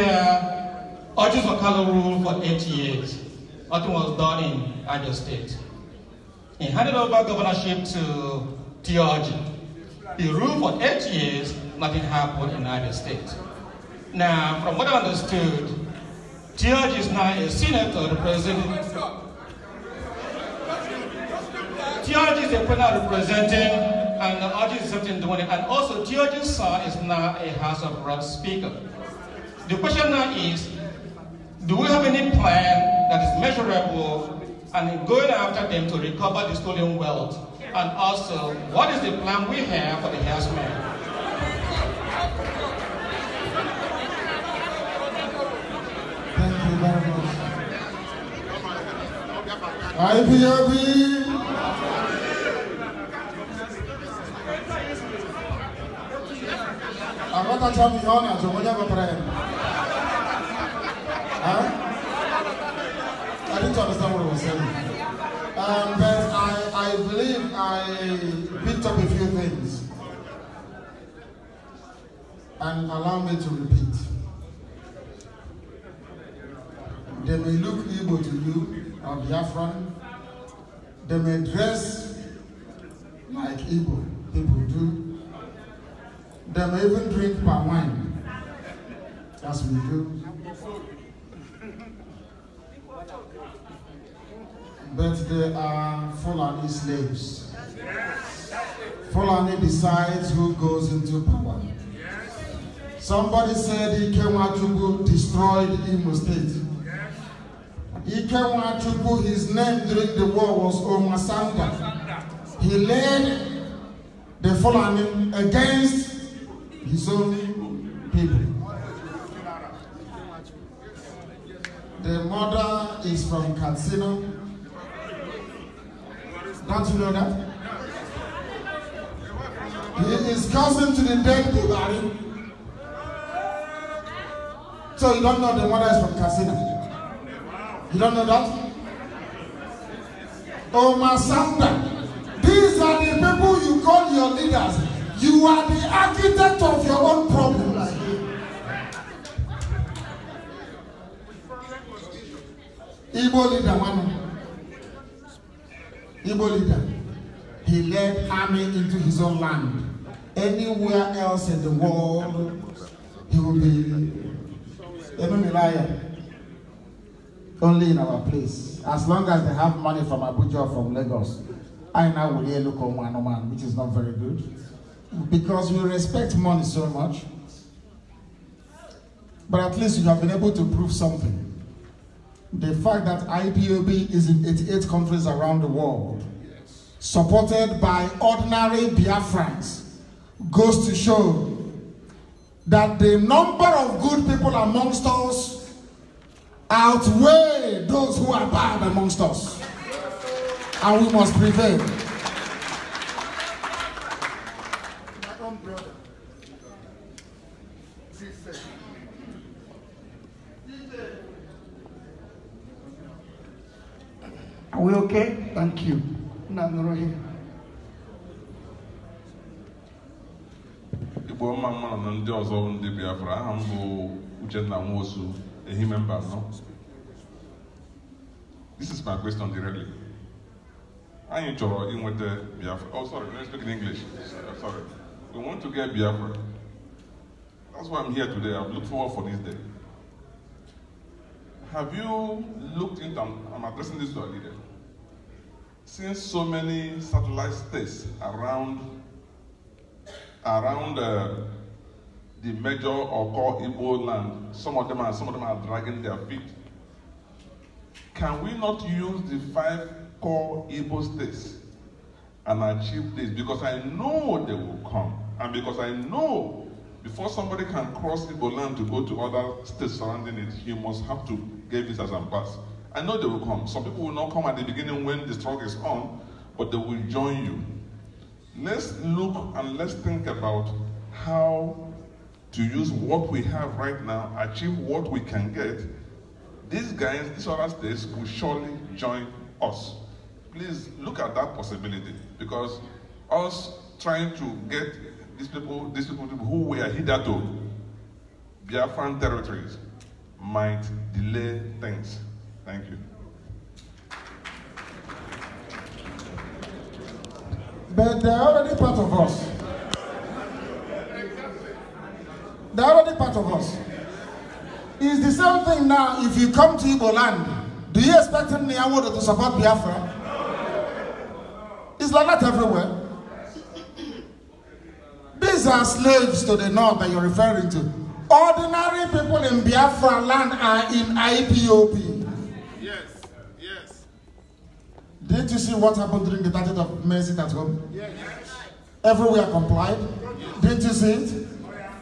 are Ojus Wakala rule for 80 years nothing was done in Niger State. He handed over governorship to Theology. He ruled for eight years, nothing happened in Niger State. Now, from what I understood, Theology is now a senator representing. Theology is a panel representing and the audience is and also Theology's son is now a House of Reps speaker. The question now is, do we have any plan that is measurable and going after them to recover the stolen wealth? And also, what is the plan we have for the herdsmen? Thank you very much. IPOB. Agora tá chamando, já vou já para ele. and allow me to repeat. They may look evil to you or Biafran. They may dress like evil people do. They may even drink palm wine, as we do. But they are Fulani slaves. Fulani decides who goes into power. Somebody said Ike Nwachukwu destroyed Imo State. Ike Nwachukwu, his name during the war was Omasanda. He led the Fulani against his own people. The mother is from Katsina. Don't you know that? He is cousin to the dead Bulgarian. So you don't know the mother is from Casina. You don't know that? Oh, Masanda, these are the people you call your leaders. You are the architect of your own problems. Igbo leader, one. Igbo leader. He led army into his own land. Anywhere else in the world, he will be Even may Only in our place. As long as they have money from Abuja or from Lagos, I now will hear local man, man, which is not very good. Because we respect money so much. But at least you have been able to prove something. The fact that IPOB is in 88 countries around the world, supported by ordinary Biafrans, goes to show that the number of good people amongst us outweigh those who are bad amongst us. And we must prevail. Are we okay? Thank you. No, here. Igbo mma mmanụ na ndị ọzọ ndị Biafra aha m bụ Uchenna Nwosu Ehime Mbanọ this is my question directly anyị chọrọ inweta Biafra oh sorry let us speak in English uh, sorry we want to get Biafra that's why I'm here today I've looked forward for this day have you looked into I'm addressing this to a leader since so many satellite states around around uh, the major or core Igbo land, some of them are some of them are dragging their feet. Can we not use the five core Igbo states and achieve this? Because I know they will come, and because I know before somebody can cross Igbo land to go to other states surrounding it, he must have to get visas and pass. I know they will come. Some people will not come at the beginning when the struggle is on, but they will join you. Let's look and let's think about how to use what we have right now, achieve what we can get. These guys, these other states will surely join us. Please look at that possibility because us trying to get these people, these people who were hitherto Biafran territories might delay things. Thank you. but they're already part of us. They're already part of us. It's the same thing now if you come to Igbo land. Do you expect Nyawodo to support Biafra? It's like that everywhere. These are slaves to the north that you're referring to. Ordinary people in Biafra land are in IPOP. Didn't you see what happened during the 30th of mercy sit at home? Yes. Everywhere complied. Yes. Didn't you see it? Oh, yeah.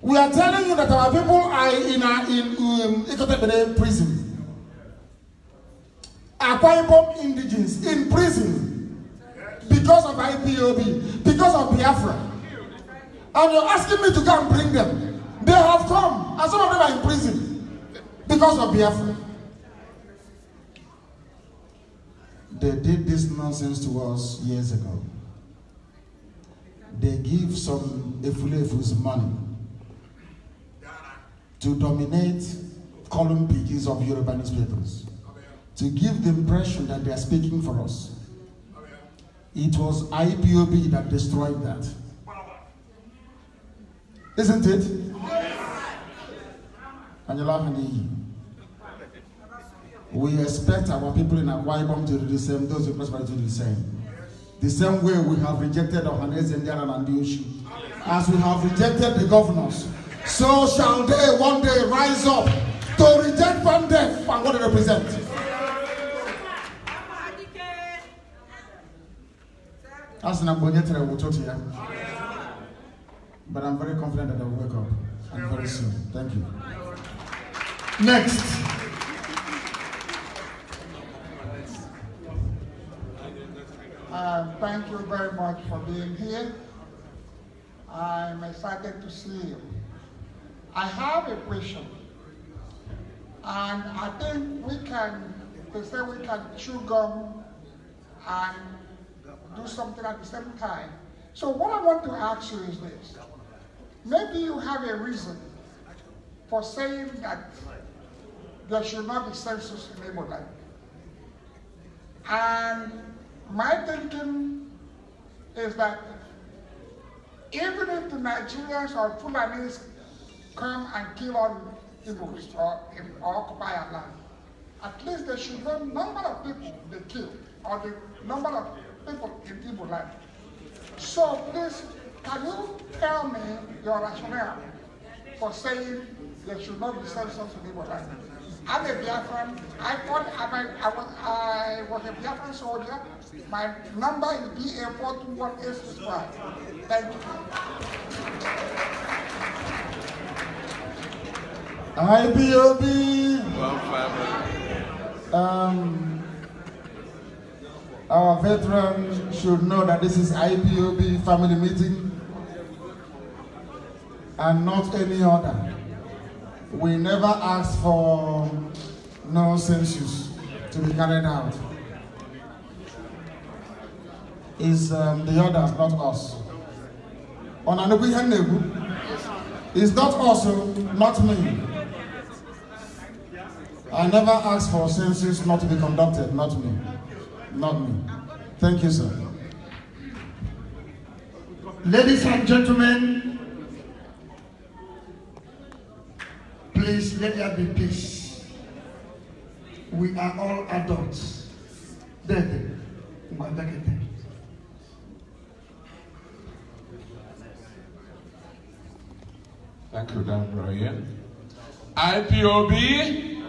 We are telling you that our people are in a, in um, Ikotebede prison. Akwa Ibom indigenes in prison because of IPOB, because of Biafra. And you're asking me to go and bring them. They have come, and some of them are in prison because of Biafra. They did this nonsense to us years ago. They give some Efulefus money to dominate column pages of Yoruba newspapers, to give the impression that they are speaking for us. It was IPOB that destroyed that. Isn't it? And you're laughing We expect our people in Akwa Ibom to do the same, those in Prosperity to do the same. The same way we have rejected Ohanes, Indiana, and Diushi. As we have rejected the governors, so shall they one day rise up to reject from death and what they represent. That's an But I'm very confident that they will wake up and very soon. Thank you. Next. Uh, thank you very much for being here. I'm excited to see you. I have a question. And I think we can, they say we can chew gum and do something at the same time. So what I want to ask you is this. Maybe you have a reason for saying that there should not be census in Ebola. And my thinking is that even if the Nigerians or Fulanis come and kill all Igbos or, occupy our land, at least they should know number of people they kill or the number of people in Igbo land. So please, can you tell me your rationale for saying there should not be censors in Igbo land? I'm a Biafran. I thought I, I, was, I was a Biafran soldier. My number is BA 421865. Thank you. IBOB. Well, um, our veterans should know that this is IPOB family meeting and not any other. We never ask for no census to be carried out is um, the others, not us. It's not us, oh, not me. I never asked for census not to be conducted, not me. Not me. Thank you, sir. Ladies and gentlemen, please let there be peace. We are all adults. Then, Thank you, Dan Brian. IPOB.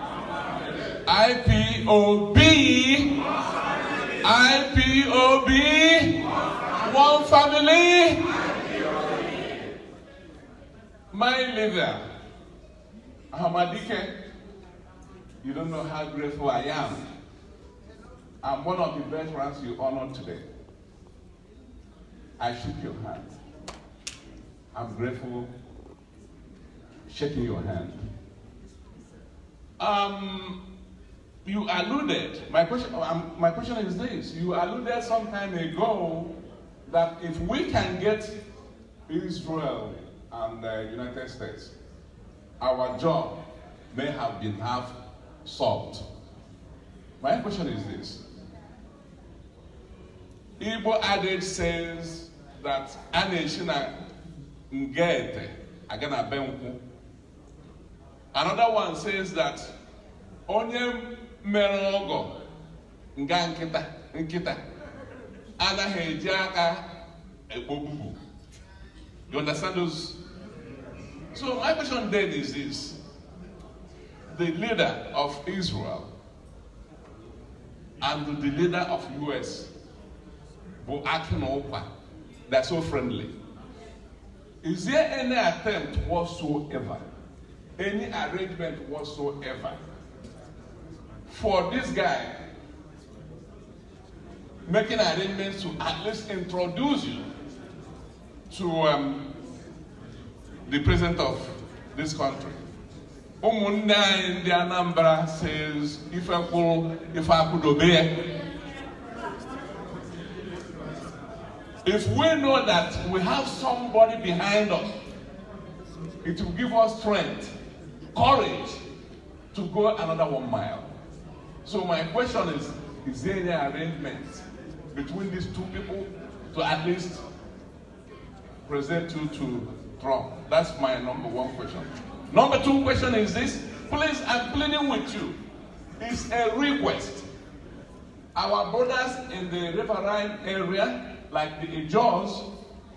IPOB. IPOB. One family. My leader, Hamadike, you don't know how grateful I am. I'm one of the veterans you honored today. I shook your hand. I'm grateful shaking your hand. Um, you alluded, my question, um, my question is this, you alluded some time ago that if we can get Israel and the United States, our job may have been half solved. My question is this. Igbo adage says that a na-eshi ngete aga Another one says that onye mere ọgọ nga nkịta nkịta anaghị eji aka ekpogbu. You understand those? So my question then is this. The leader of Israel and the leader of US were acting over. they so friendly. Is there any attempt whatsoever any arrangement whatsoever. For this guy, making arrangements to at least introduce you to um, the president of this country. Umunda in the Anambra says, if I could, if I could obey. If we know that we have somebody behind us, it will give us strength courage to go another one mile. So my question is, is there any arrangement between these two people to at least present you to Trump? That's my number one question. Number two question is this, please, I'm pleading with you. It's a request. Our brothers in the riverine area, like the Ijors,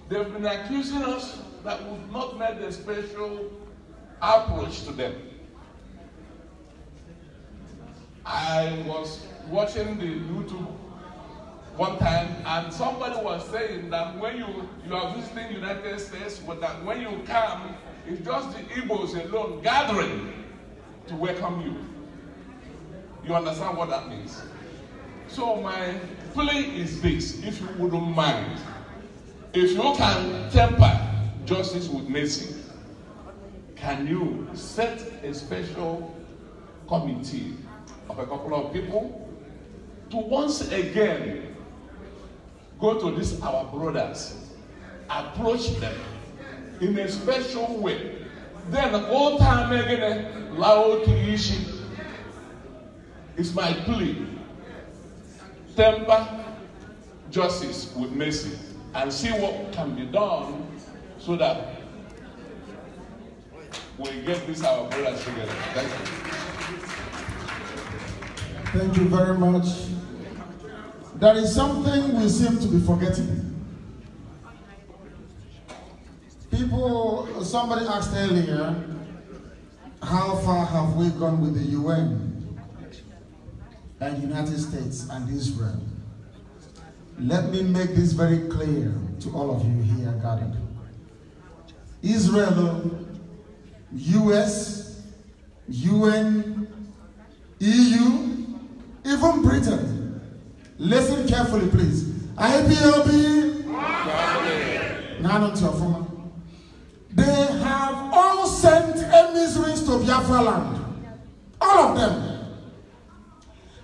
they've been accusing us that we've not made the special approach to them. I was watching the YouTube one time and somebody was saying that when you, you are visiting United States, but that when you come, it's just the Igbos alone gathering to welcome you. You understand what that means? So my plea is this, if you wouldn't mind, if you can temper justice with mercy, can you set a special committee of a couple of people to once again go to these our brothers, approach them in a special way. Then all time again, eh, Laotiishi is my plea. Temper justice with mercy and see what can be done so that we give this our brothers together. Thank you. Thank you very much. There is something we seem to be forgetting. People, somebody asked earlier, how far have we gone with the UN and United States and Israel? Let me make this very clear to all of you here gathered. Israel US, UN, EU, even Britain. Listen carefully, please. IPOB, yeah. they have all sent emissaries to Biafra land. All of them.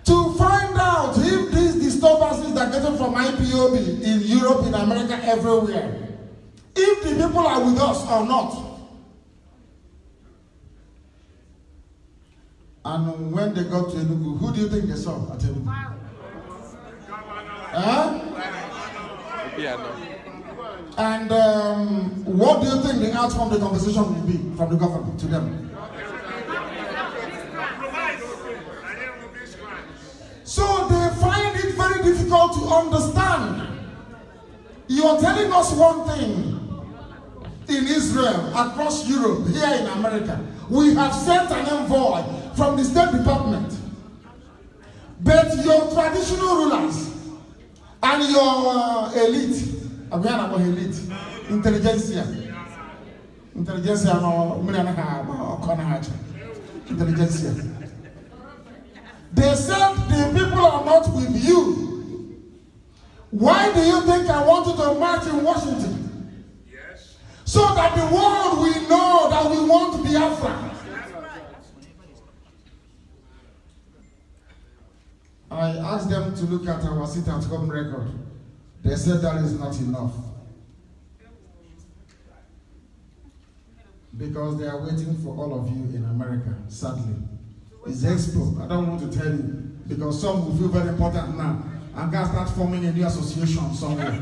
To find out if these disturbances are getting from IPOB in Europe, in America, everywhere. If the people are with us or not. And when they got to Enugu, who do you think they saw at Enugu? Wow. Huh? Yeah, And um, what do you think the outcome of the conversation will be from the government to them? So they find it very difficult to understand. You are telling us one thing in Israel, across Europe, here in America. We have sent an envoy from the State Department. But your traditional rulers and your uh, elite, Abiana going elite, intelligentsia, intelligentsia, no, uh, million and a half, or corner intelligentsia. They said the people are not with you. Why do you think I want you to march in Washington? Yes. So that the world will know that we want Biafra. I asked them to look at our sit at home record. They said that is not enough. Because they are waiting for all of you in America, sadly. It's expo. I don't want to tell you. Because some will feel very important now. and guys start forming a new association somewhere.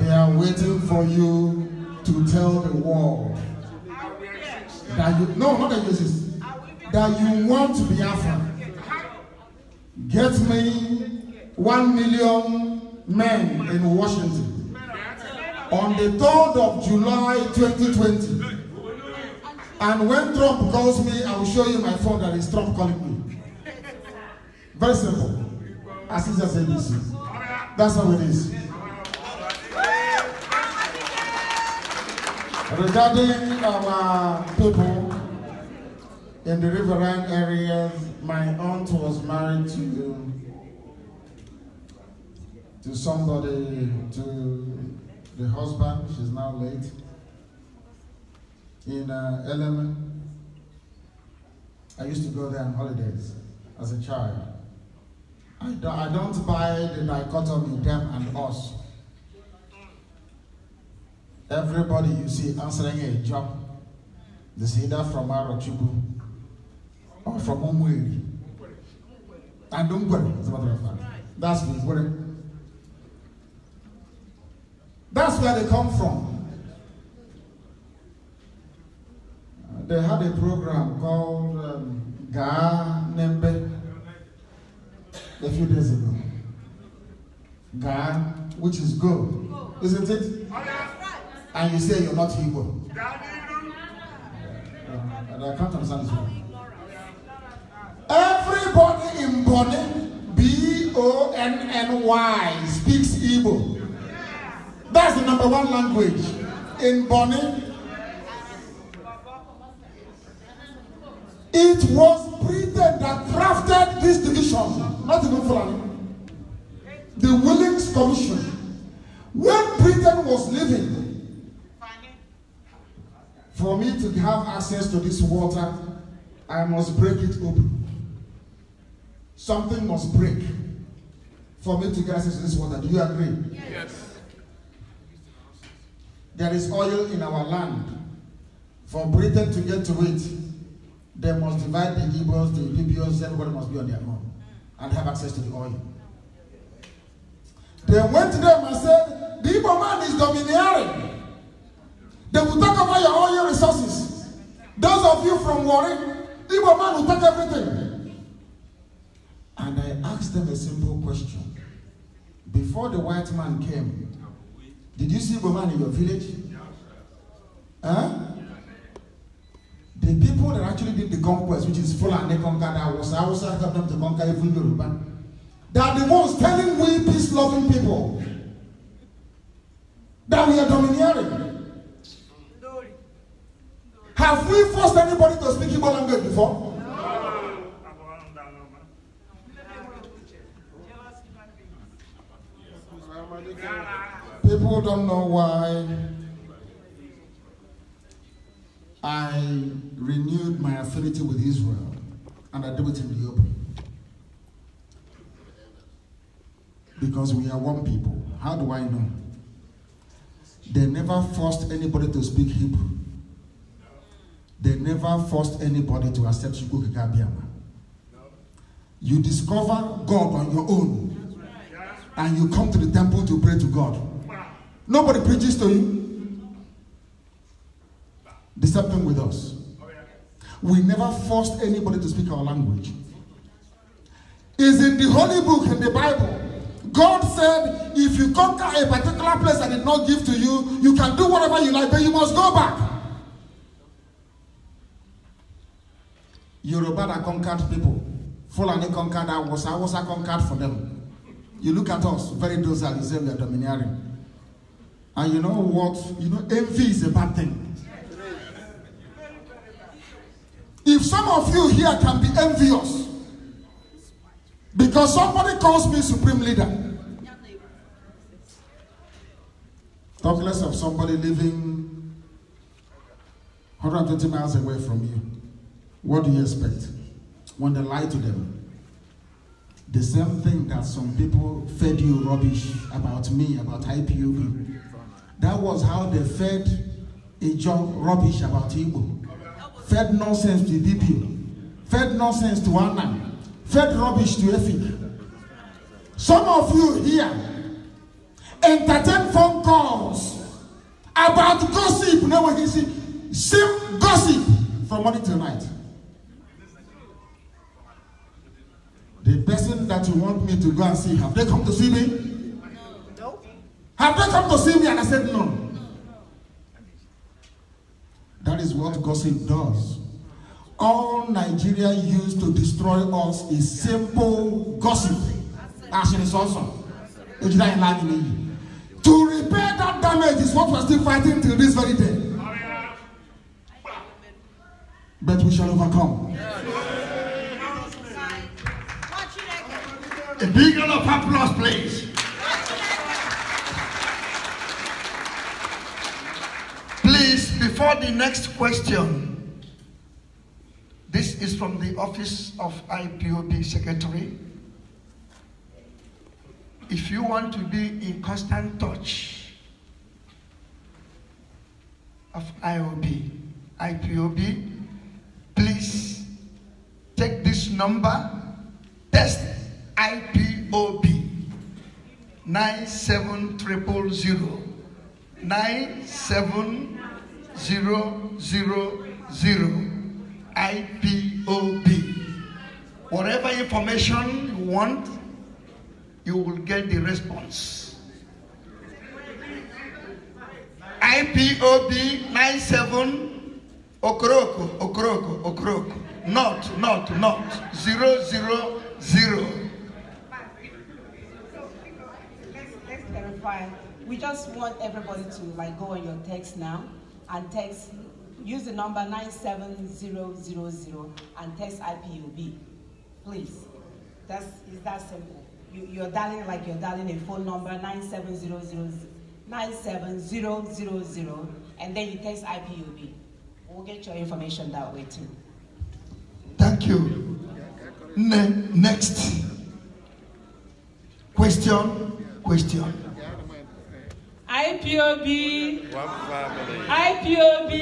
they are waiting for you to tell the world that you, no, not the uses, that you want to be Biafra. Get me one million men in Washington on the 3rd of July 2020. And when Trump calls me, I will show you my phone that is Trump calling me. Very simple. As easy as it is. That's how it is. Regarding our people, in the riverine areas, my aunt was married to to somebody, to the husband, she's now late, in uh, I used to go there on holidays as a child. I don't, I don't buy the dichotomy, them and us. Everybody you see answering a job, this see that from tribe i from Omweri. And Umweri, as a matter of fact. That's Umweri. That's where they come from. Uh, they had a program called um, Ga Nembe a few days ago. Ga, which is go, isn't it? And you say you're not Igbo. Uh, and I can't understand this one. Everybody in Bonny, B O N N Y, speaks Igbo. That's the number one language in Bonny. It was Britain that crafted this division, not even Fulani. The Willings Commission. When Britain was living, for me to have access to this water, I must break it open. Something must break for me to get access to this water. Do you agree? Yes. There is oil in our land. For Britain to get to it, they must divide the Hebrews, the Libyans, everybody must be on their own and have access to the oil. They went to them and said, The Igbo man is domineering. They will take over your oil resources. Those of you from Warren, Igbo man will take everything. them a simple question. Before the white man came, did you see woman in your village? Huh? The people that actually did the conquest, which is they conquered was, Hausa helped them to conquer even Yoruba, they are the ones telling we peace-loving people that we are domineering. Have we forced anybody to speak Igbo language before? People don't know why I renewed my affinity with Israel and I do it in the open. Because we are one people. How do I know? They never forced anybody to speak Hebrew. They never forced anybody to accept Shukukikabiama. You discover God on your own. and you come to the temple to pray to God. Nobody preaches to you. The with us. We never forced anybody to speak our language. Is in the Holy Book in the Bible. God said, if you conquer a particular place I did not give to you, you can do whatever you like, but you must go back. Yoruba that conquered people. Fulani conquered that was I was I conquered for them. You look at us, very docile, you say we are domineering. And you know what? You know, envy is a bad thing. If some of you here can be envious because somebody calls me supreme leader, talk less of somebody living 120 miles away from you. What do you expect when they lie to them? the same thing that some people fed you rubbish about me, about IPOB. That was how they fed a job rubbish about Igbo. Fed nonsense to DPO. Fed nonsense to Anna. Fed rubbish to Effie. Some of you here entertain phone calls about gossip. Now, when you see, same gossip from morning till night. The person that you want me to go and see, have they come to see me? No. Have they come to see me? And I said, no. no. That is what gossip does. All Nigeria used to destroy us is simple gossip. As it is also. To repair that damage is what we're still fighting till this very day. But we shall overcome. Yeah. A big round of applause, please. Please, before the next question, this is from the office of IPOB Secretary. If you want to be in constant touch of IOB, IPOB, please take this number, test IPOB 97000 97000 IPOB. Whatever information you want, you will get the response. IPOB 97 Okroko Okroko Okroko not, not, not, zero zero zero reply. We just want everybody to like go on your text now and text, use the number 97000 and text IPUB, please. That's, it's that simple. You, you're dialing like you're dialing a phone number 97000 97000 and then you text IPUB. We'll get your information that way too. Thank you. Ne next. Question, question. IPOB, one family. IPOB,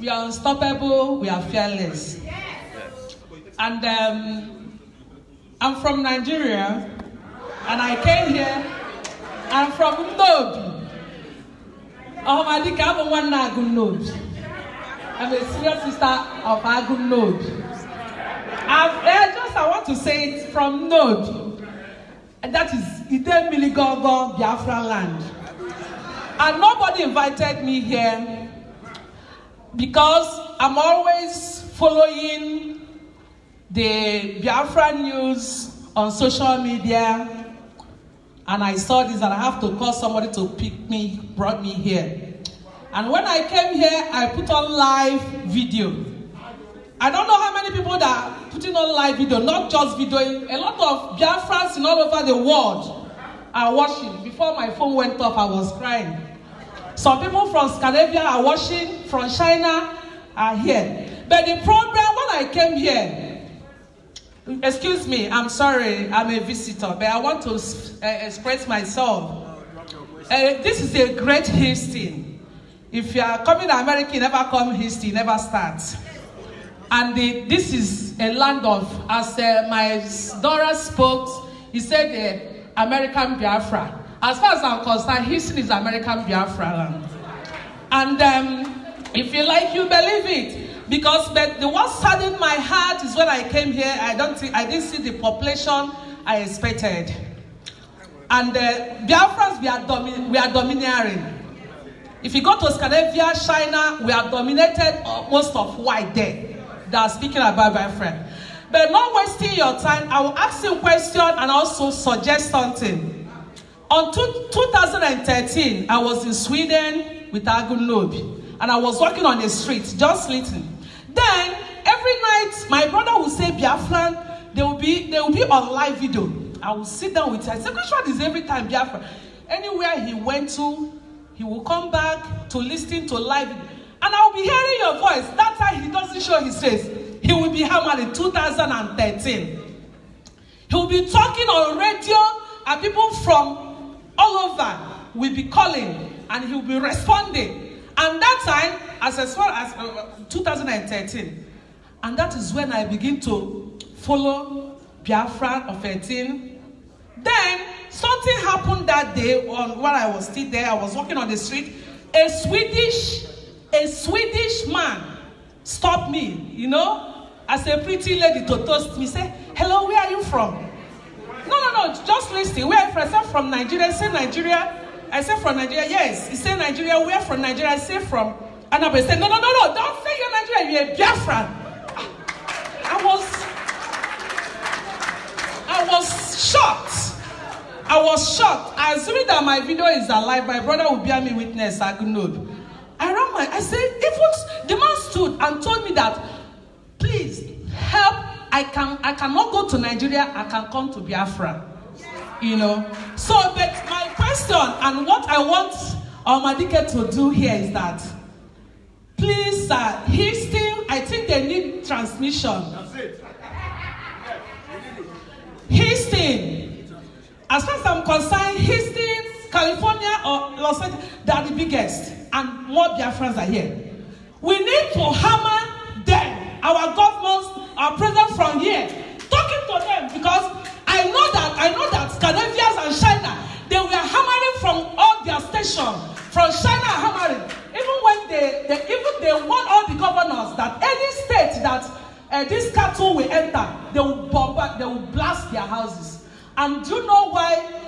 We are unstoppable, we are fearless. Yes. And um, I'm from Nigeria, and I came here. I'm from Nod. Oh, my dick, I'm one Agum Ndobi. I'm a senior sister of Agum Ndobi. I've, uh, just I want to say it from Ndobi and that is Idemiligogo, Biafra land. And nobody invited me here because I'm always following the Biafra news on social media and I saw this and I have to call somebody to pick me, brought me here. And when I came here, I put on live video. I don't know how many people that are putting on live video, not just videoing. A lot of Biafrans in all over the world are watching. Before my phone went off, I was crying. Some people from Scandinavia are watching, from China are here. But the problem when I came here, excuse me, I'm sorry, I'm a visitor, but I want to uh, express myself. Uh, this is a great history. If you are coming to America, you never come history, never start. And this is a land of, as uh, my daughter spoke, he said, uh, American Biafra. As far as I'm concerned, history is American Biafra land. And um, if you like, you believe it. Because the one saddened my heart is when I came here, I, don't think, I didn't see the population I expected. And uh, Biafrans, we are, domi- we are domineering. If you go to Scandinavia, China, we are dominated uh, most of white there are speaking about my friend. But not wasting your time, I will ask you a question and also suggest something. On two, 2013, I was in Sweden with Agun and I was walking on the street, just listening. Then, every night, my brother would say, Biafran, they will be, they will be on live video. I will sit down with her. I say, which one is every time Biafran? Anywhere he went to, he will come back to listen to live And I'll be hearing your voice. That time he doesn't show his face. He will be hammered in 2013. He will be talking on radio, and people from all over will be calling, and he will be responding. And that time, as as far as uh, 2013, and that is when I begin to follow Biafra of 13. Then something happened that day on while I was still there. I was walking on the street. A Swedish a Swedish man stopped me, you know, as a pretty lady to toast me, say, hello, where are you from? No, no, no, just listen. Where are you from? I said, from Nigeria. Say Nigeria. I said, from Nigeria. Yes. He said, Nigeria. Where from Nigeria? I say from Annabelle. Say, no, no, no, no, don't say you're Nigeria. You're a Biafran. I was, I was shocked. I was shocked. Assuming that my video is alive, my brother will bear me witness, I could around my I said, even the man stood and told me that, please help. I can I cannot go to Nigeria, I can come to Biafra. You know. So but my question and what I want our Omadike to do here is that please sir, uh, he still I think they need transmission. That's it. Houston, as far as I'm concerned, Houston California or Los Angeles, they are the biggest, and more Biafrans are here. We need to hammer them, our governments, our president from here, talking to them because I know that I know that Canadians and China, they were hammering from all their stations, from China hammering. Even when they, they even they warn all the governors that any state that uh, this cattle will enter, they will bomb, they will blast their houses. And do you know why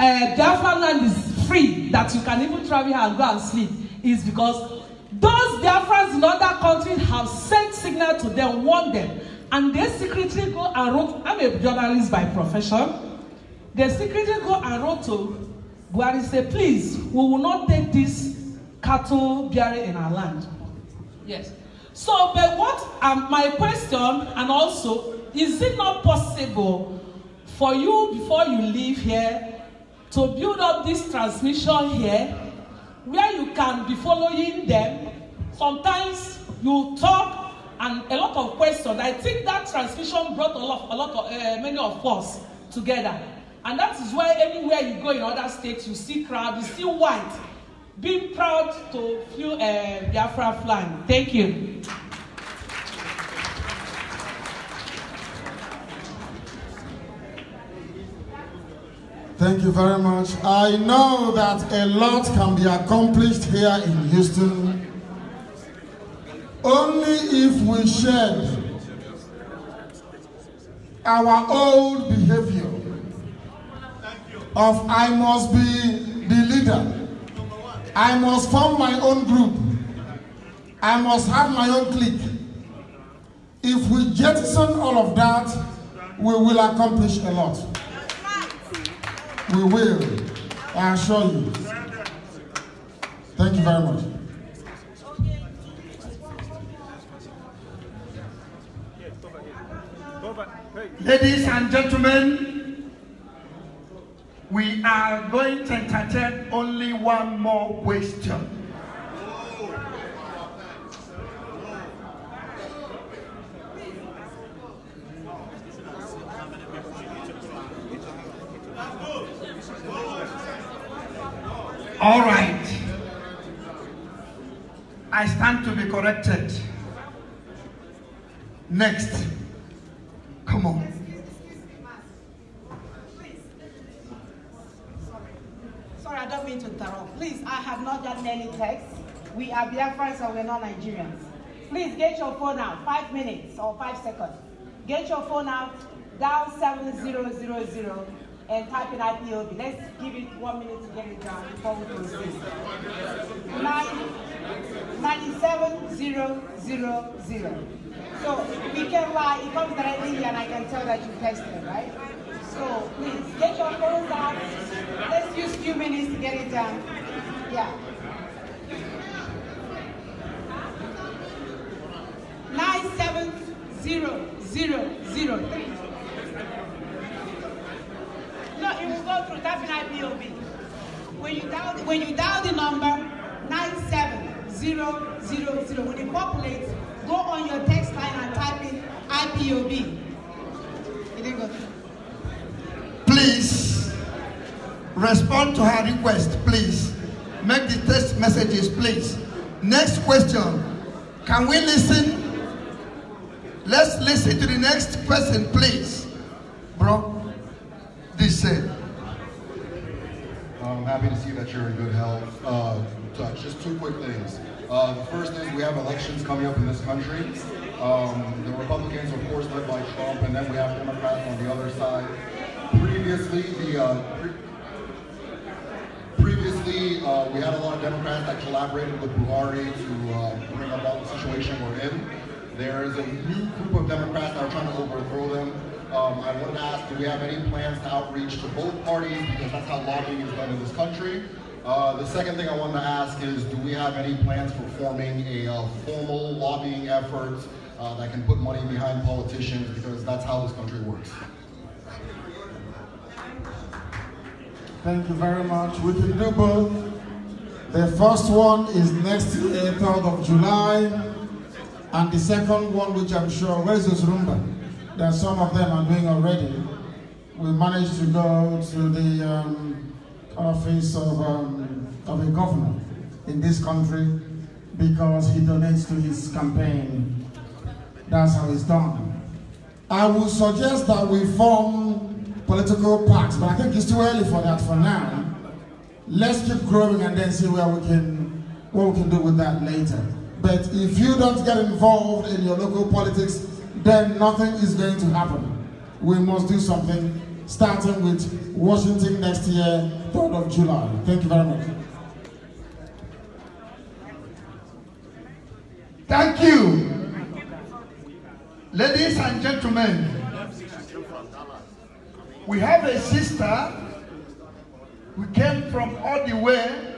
uh, Biafra land is free, that you can even travel and go and sleep, is because those Biafrans in other countries have sent signal to them, warned them, and they secretly go and wrote, I'm a journalist by profession, they secretly go and wrote to Buhari say, please, we will not take this cattle bearing in our land. Yes. So, but what um, my question, and also, is it not possible for you, before you leave here, to build up this transmission here where you can be following them sometimes you talk and a lot of questions i think that transmission brought a lot a lot of uh, many of us together and that is why anywhere you go in other states you see crowd you see white being proud to feel uh, biafra flag thank you. Thank you very much. I know that a lot can be accomplished here in Houston only if we shed our old behavior of I must be the leader. I must form my own group. I must have my own clique. If we jettison all of that, we will accomplish a lot. We will. I assure you. Thank you very much. Ladies and gentlemen, we are going to entertain only one more question. All right. I stand to be corrected. Next. Come on. Sorry, I don't mean to interrupt. Please, I have not done any text. We are Biafrans and we're not Nigerians. Please get your phone out. Five minutes or five seconds. Get your phone out. Dial 7000 and type in IPOB. Let's give it one minute to get it done before we proceed. 97000. So we can lie, it comes directly here and I can tell that you tested, right? So please, get your phones out. Let's use few minutes to get it done. Yeah. 97000 you will go through, Type in IPOB. When you dial, when you dial the number 97000, when it populates, go on your text line and type in IPOB. It didn't go through. Please respond to her request, please. Make the text messages, please. Next question. Can we listen? Let's listen to the next person, please. Bro. Listen. I'm happy to see that you're in good health. Uh, touch. Just two quick things. Uh, the first is we have elections coming up in this country. Um, the Republicans, of course, led by Trump, and then we have Democrats on the other side. Previously, the uh, pre previously uh, we had a lot of Democrats that collaborated with Buhari to uh, bring about the situation we're in. There is a new group of Democrats that are trying to overthrow them. Um, I want to ask, do we have any plans to outreach to both parties because that's how lobbying is done in this country? Uh, the second thing I wanted to ask is, do we have any plans for forming a uh, formal lobbying effort uh, that can put money behind politicians because that's how this country works? Thank you very much. We can do both. The first one is next 3rd uh, of July, and the second one, which I'm sure, where is rumor? that some of them are doing already, we managed to go to the um, office of, um, of a governor in this country because he donates to his campaign. That's how it's done. I would suggest that we form political parties, but I think it's too early for that for now. Let's keep growing and then see where we can, what we can do with that later. But if you don't get involved in your local politics then nothing is going to happen. We must do something, starting with Washington next year, 3rd of July. Thank you very much. Thank you. Ladies and gentlemen, we have a sister who came from all the way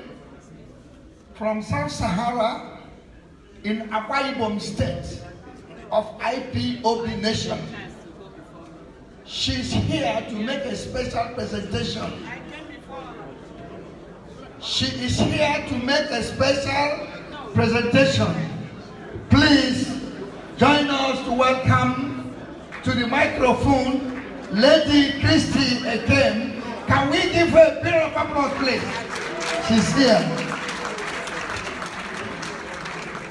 from South Sahara in Akwa Ibom State of IPOB Nation. She's here to make a special presentation. She is here to make a special presentation. Please join us to welcome to the microphone Lady Christie again. Can we give her a bit of applause, please? She's here.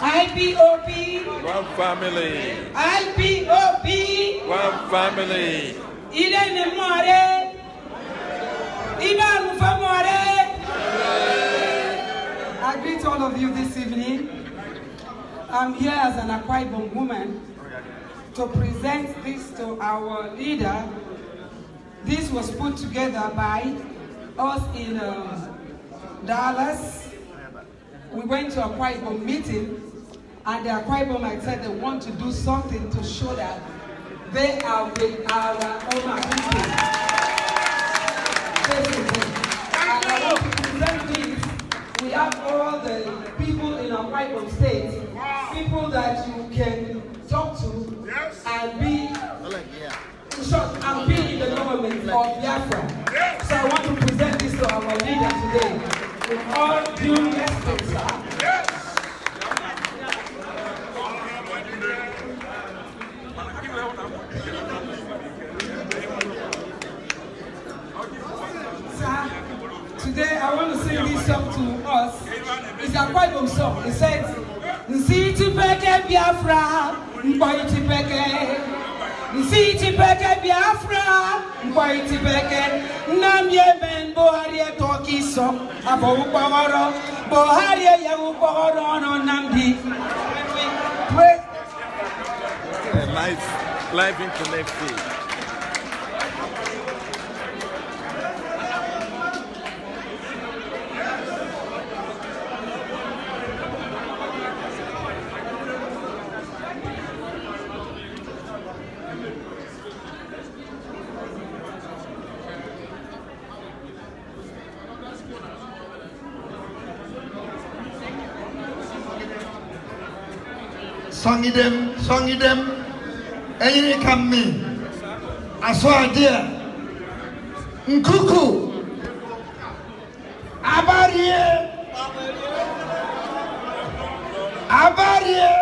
IPOP. One family. IPOP. One family. Ile ni mware. Ile alufa I greet all of you this evening. I'm here as an Akwaibom woman to present this to our leader. This was put together by us in uh, Dallas, we went to a Kwaibo meeting, and the Kwaibo might said they want to do something to show that they are with our Oma people. We have all the people in our Kwaibo state, people that you can talk to and be short and be in the government of Biafra. So I want to present this to our leader today. With all due today I want to sing this song to us. It's a quite old song. It says, Nsi chipeke Biafra, mkwai chipeke. Nsi chipeke Biafra, mkwai chipeke. Nam ye Yemen Buhari etoki so, abo ukpaworo. Buhari ye ukpaworo no namdi. Life, life in connected. sɔngidɛm sɔngidɛm ɛyini ka mi asɔadeɛ nkuku abarie abarie.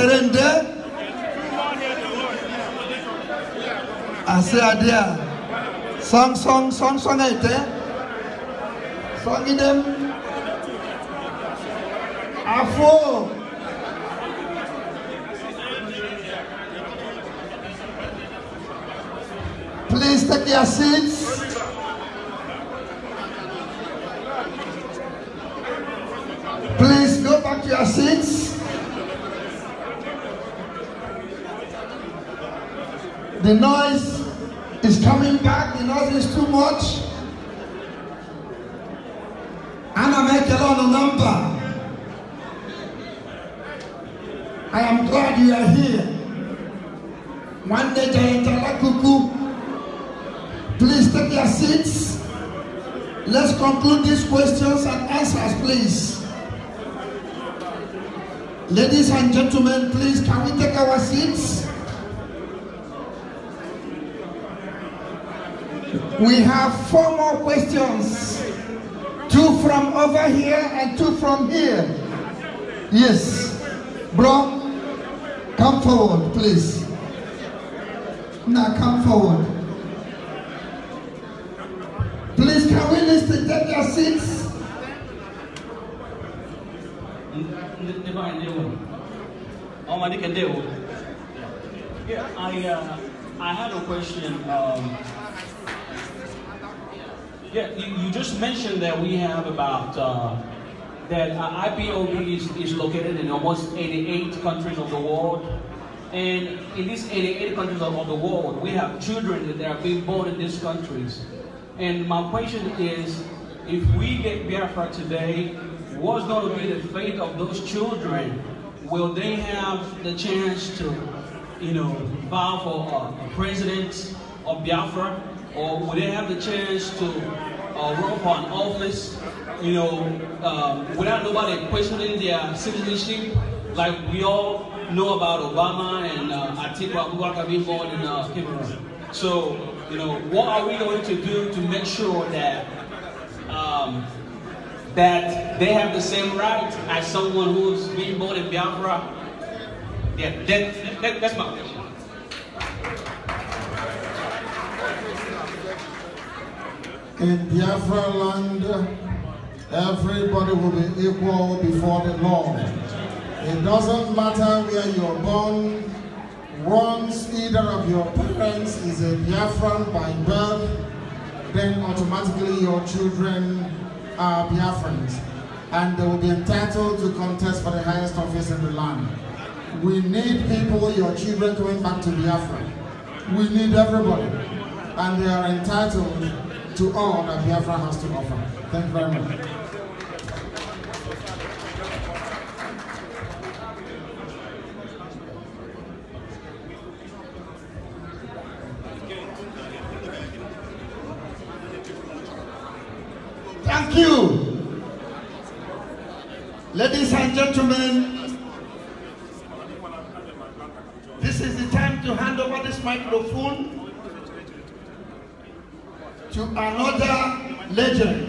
surrender? Assez à dire. Song, song, song, song, été. Song, idem. À faux. Please take your seats. Please go back to your seats. The noise is coming back. The noise is too much. And I make a lot of number. I am glad you are here. One day, Jayantala Kuku, please take your seats. Let's conclude these questions and answers, please. Ladies and gentlemen, please, can we take our seats? We have four more questions. Two from over here and two from here. Yes. Bro, come forward, please. Now come forward. Please, can we list to take your seats? I, uh, I had a question. Um, yeah, you, you just mentioned that we have about, uh, that IPOB is, is located in almost 88 countries of the world. And in these 88 countries of the world, we have children that are being born in these countries. And my question is, if we get Biafra today, what's going to be the fate of those children? Will they have the chance to, you know, vow for a uh, president of Biafra? or would they have the chance to uh, run for an office, you know, um, without nobody questioning their citizenship, like we all know about Obama and uh, Atiku Abubakar being born in uh, Cameroon. So, you know, what are we going to do to make sure that um, that they have the same right as someone who's being born in Biafra? Yeah, that, that, that's my question. in Biafra land, everybody will be equal before the law. It doesn't matter where you're born, once either of your parents is a Biafran by birth, then automatically your children are Biafrans and they will be entitled to contest for the highest office in the land. We need people, your children going back to Biafra. We need everybody and they are entitled to all that Biafra has to offer. Thank you very much. Thank you. Ladies and gentlemen, this is the time to hand over this microphone to another legend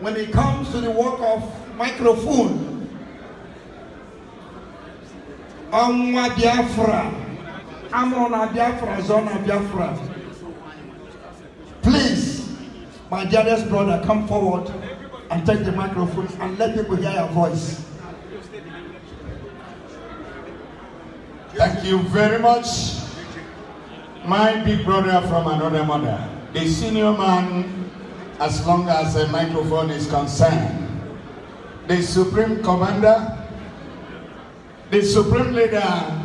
when it comes to the work of microphone. Amwa Biafra. Amrona Biafra, Zona Biafra. Please, my dearest brother, come forward and take the microphone and let people hear your voice. Thank you very much, my big brother from another mother the senior man, as long as the microphone is concerned, the supreme commander, the supreme leader,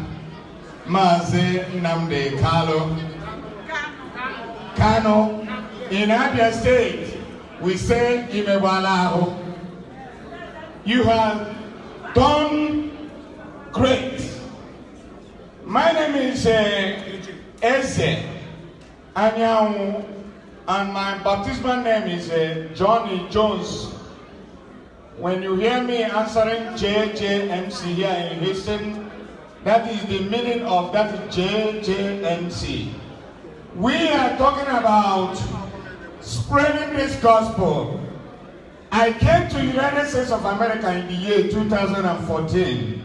Mazi Namde Kalo, Kano, in Abia State, we say Imewalaho. You have done great. My name is uh, Eze Anyanwu and my baptismal name is uh, Johnny Jones. When you hear me answering JJMC here in Houston, that is the meaning of that JJMC. We are talking about spreading this gospel. I came to the United States of America in the year 2014.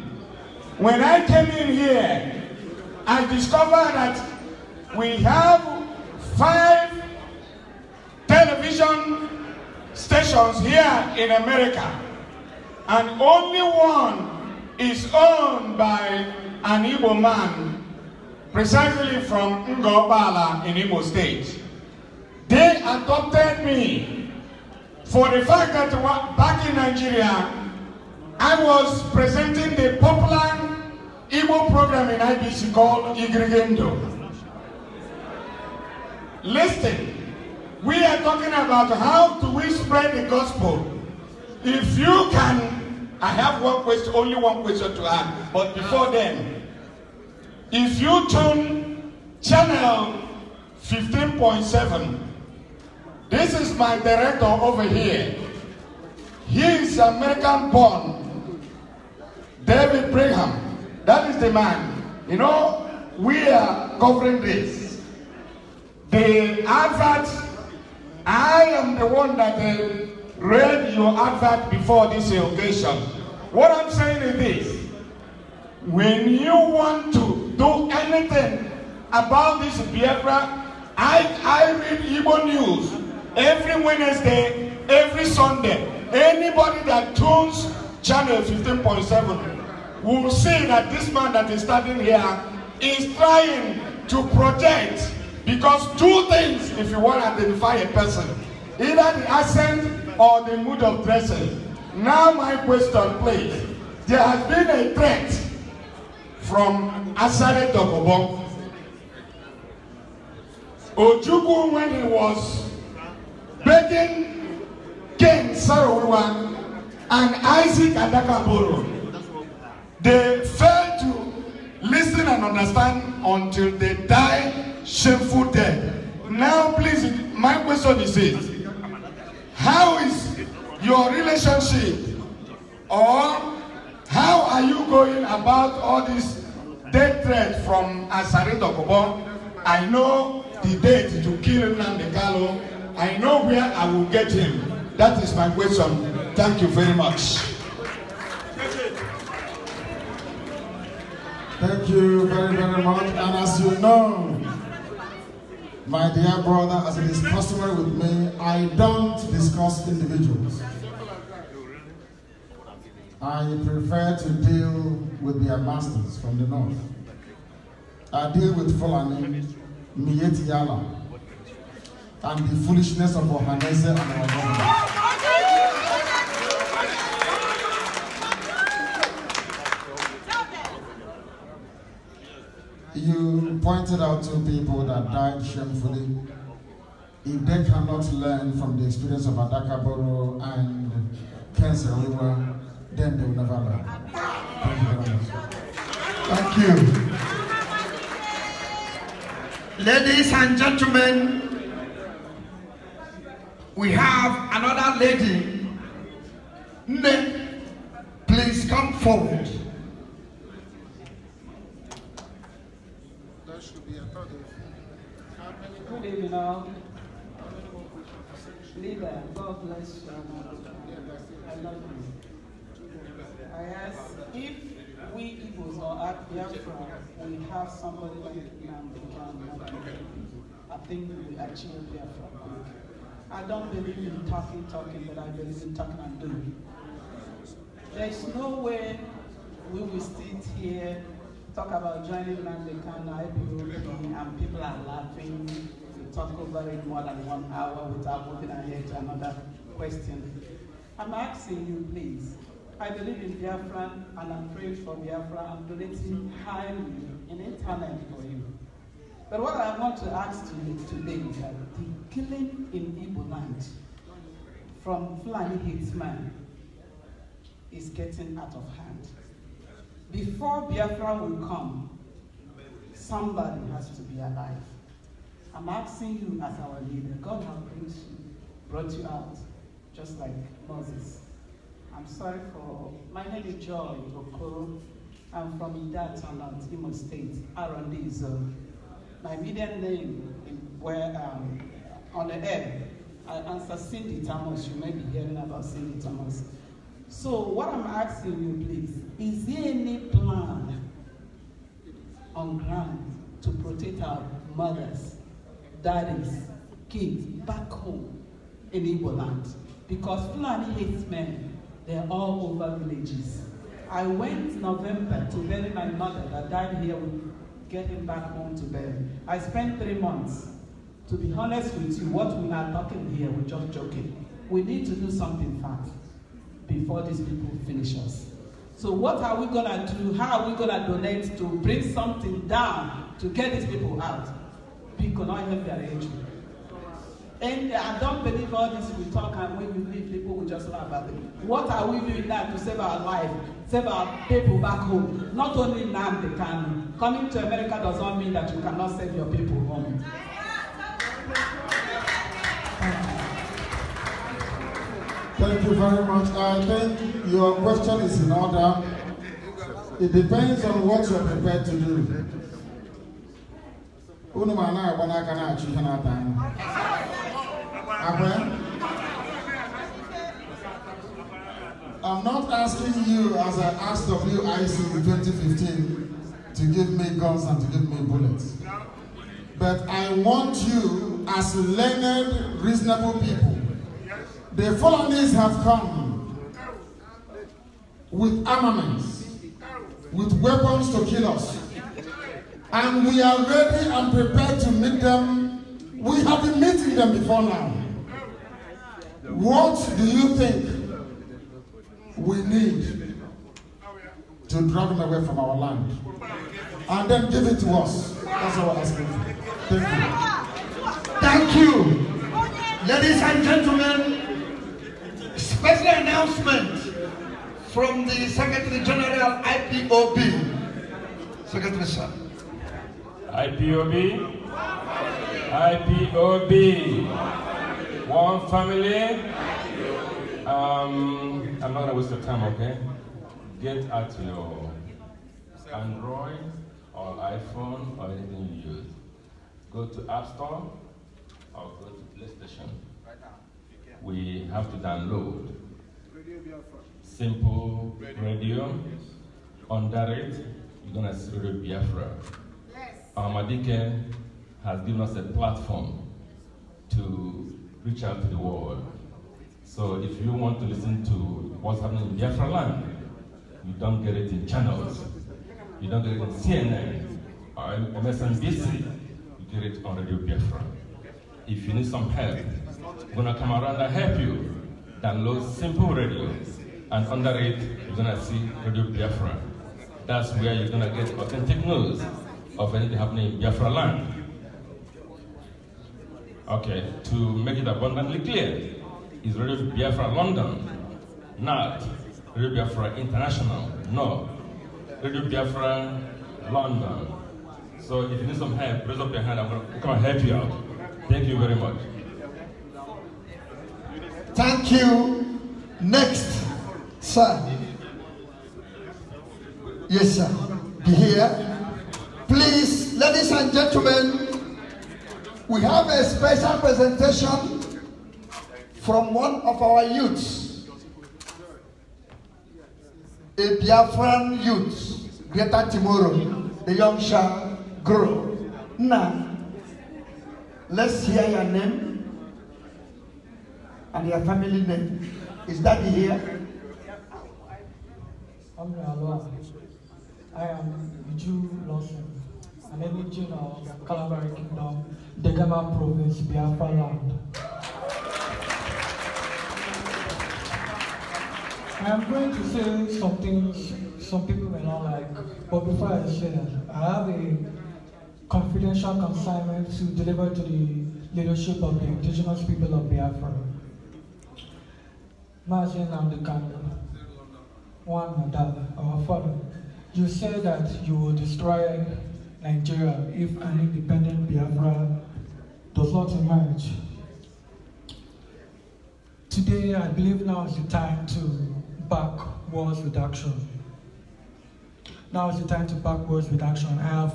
When I came in here, I discovered that we have five television stations here in America, and only one is owned by an Igbo man, precisely from Ngobala in Igbo State. They adopted me for the fact that back in Nigeria, I was presenting the popular Igbo program in IBC called Igrigendo. Listen, we are talking about how do we spread the gospel. If you can, I have one question, only one question to ask. But before then, if you tune channel 15.7, this is my director over here. He is American born, David Brigham. That is the man. You know, we are covering this. The advert I am the one that uh, read your advert before this occasion. What I'm saying is this. When you want to do anything about this Biafra, I, I read Igbo news every Wednesday, every Sunday. Anybody that tunes channel 15.7 will see that this man that is standing here is trying to protect Because two things, if you want to identify a person, either the accent or the mood of dressing. Now my question, please. There has been a threat from Asare Dokobo. Ojukwu, when he was begging King Sarawuwa and Isaac Adakaboro, they failed to listen and understand until they died shameful death. Now, please, my question is this. How is your relationship or how are you going about all this death threat from Asare Dokobon? I know the date to kill Nnamdi Kanu. I know where I will get him. That is my question. Thank you very much. Thank you very, very much. And as you know, My dear brother, as it is customary with me, I don't discuss individuals. I prefer to deal with their masters from the north. I deal with Fulani, Mieti Yala, and the foolishness of Ohanese and our You pointed out two people that died shamefully. If they cannot learn from the experience of Adakaboro and River, then they will never learn. Thank you very much. Thank you. Ladies and gentlemen, we have another lady. Please come forward. Good evening all. Leader, God bless you. I love you. I ask if we Igbos or at Biafra, we have somebody like Namdi I think we achieve Biafra. I don't believe in talking, talking, but I believe in talking and doing. There is no way we will sit here, talk about joining Namdi Kano, and people are laughing talk over it more than one hour without moving ahead to another question. I'm asking you, please. I believe in Biafra and I'm praying for Biafra. I'm donating highly in internet for you. But what I want to ask you today is that the killing in Igbo land from Fulani Hitman is getting out of hand. Before Biafra will come, somebody has to be alive. I'm asking you as our leader, God has brought you, brought you out, just like Moses. I'm sorry for, my name is Joy Okoro. I'm from Idataland, Imo State, Arondizo. My middle name where um, on the air, I answer Cindy Thomas. You may be hearing about Cindy Thomas. So what I'm asking you, please, is there any plan on ground to protect our mothers That is kids back home in Igbo land. Because Fulani hates men, they're all over villages. I went November to bury my mother that died here with get him back home to bury. I spent three months. To be honest with you, what we are talking here, we're just joking. We need to do something fast before these people finish us. So what are we gonna do? How are we gonna donate to bring something down to get these people out? we could not help their age. And I don't believe all this we talk and when we leave, people will just laugh at it. What are we doing now to save our life, save our people back home? Not only now they can. Coming to America does not mean that you cannot save your people home. Thank you very much. I think your question is in order. It depends on what you're prepared to do unu ma na-agba n'aka na-achụ ihe na-ata anya akwa I'm not asking you as I asked of you IC in 2015 to give me guns and to give me bullets. But I want you as learned, reasonable people. The foreigners have come with armaments, with weapons to kill us. And we are ready and prepared to meet them. We have been meeting them before now. What do you think we need to drag them away from our land? And then give it to us. That's our asking for. Thank you. Thank you. Ladies and gentlemen, special announcement from the Secretary General IPOB. Secretary Sir. IPOB, IPOB, one family. Um, I'm not gonna waste your time, okay? Get at your Android or iPhone or anything you use. Go to App Store or go to PlayStation. We have to download Simple Radio. Under it, you're gonna see Radio Biafra. Amadike um, has given us a platform to reach out to the world. So if you want to listen to what's happening in Biafra land, you don't get it in channels. You don't get it on CNN or MSNBC. You get it on Radio Biafra. If you need some help, we're gonna come around and help you. Download Simple Radio, and under it, you're gonna see Radio Biafra. That's where you're gonna get authentic news of anything happening in Biafra land. Okay, to make it abundantly clear, is Radio Biafra London, not Radio Biafra International, no. Radio Biafra London. So if you need some help, raise up your hand, I'm gonna help you out. Thank you very much. Thank you. Next, sir. Yes, sir. Be here. Please, ladies and gentlemen, we have a special presentation from one of our youths, a Biafran youth, Greater Timoro, the young shall grow. Now, let's hear your name and your family name. Is that here? I am Viju Lawson. and every region of Calabari Kingdom, Degama Province, Biafra land. I am going to say something some people may not like, but before I say that, I have a confidential consignment to deliver to the leadership of the indigenous people of Biafra. Imagine I'm the candle. One, Madam, our father, you said that you will destroy Nigeria if an independent Biafra does not emerge. Today, I believe now is the time to back wars reduction. Now is the time to back wars reduction. I have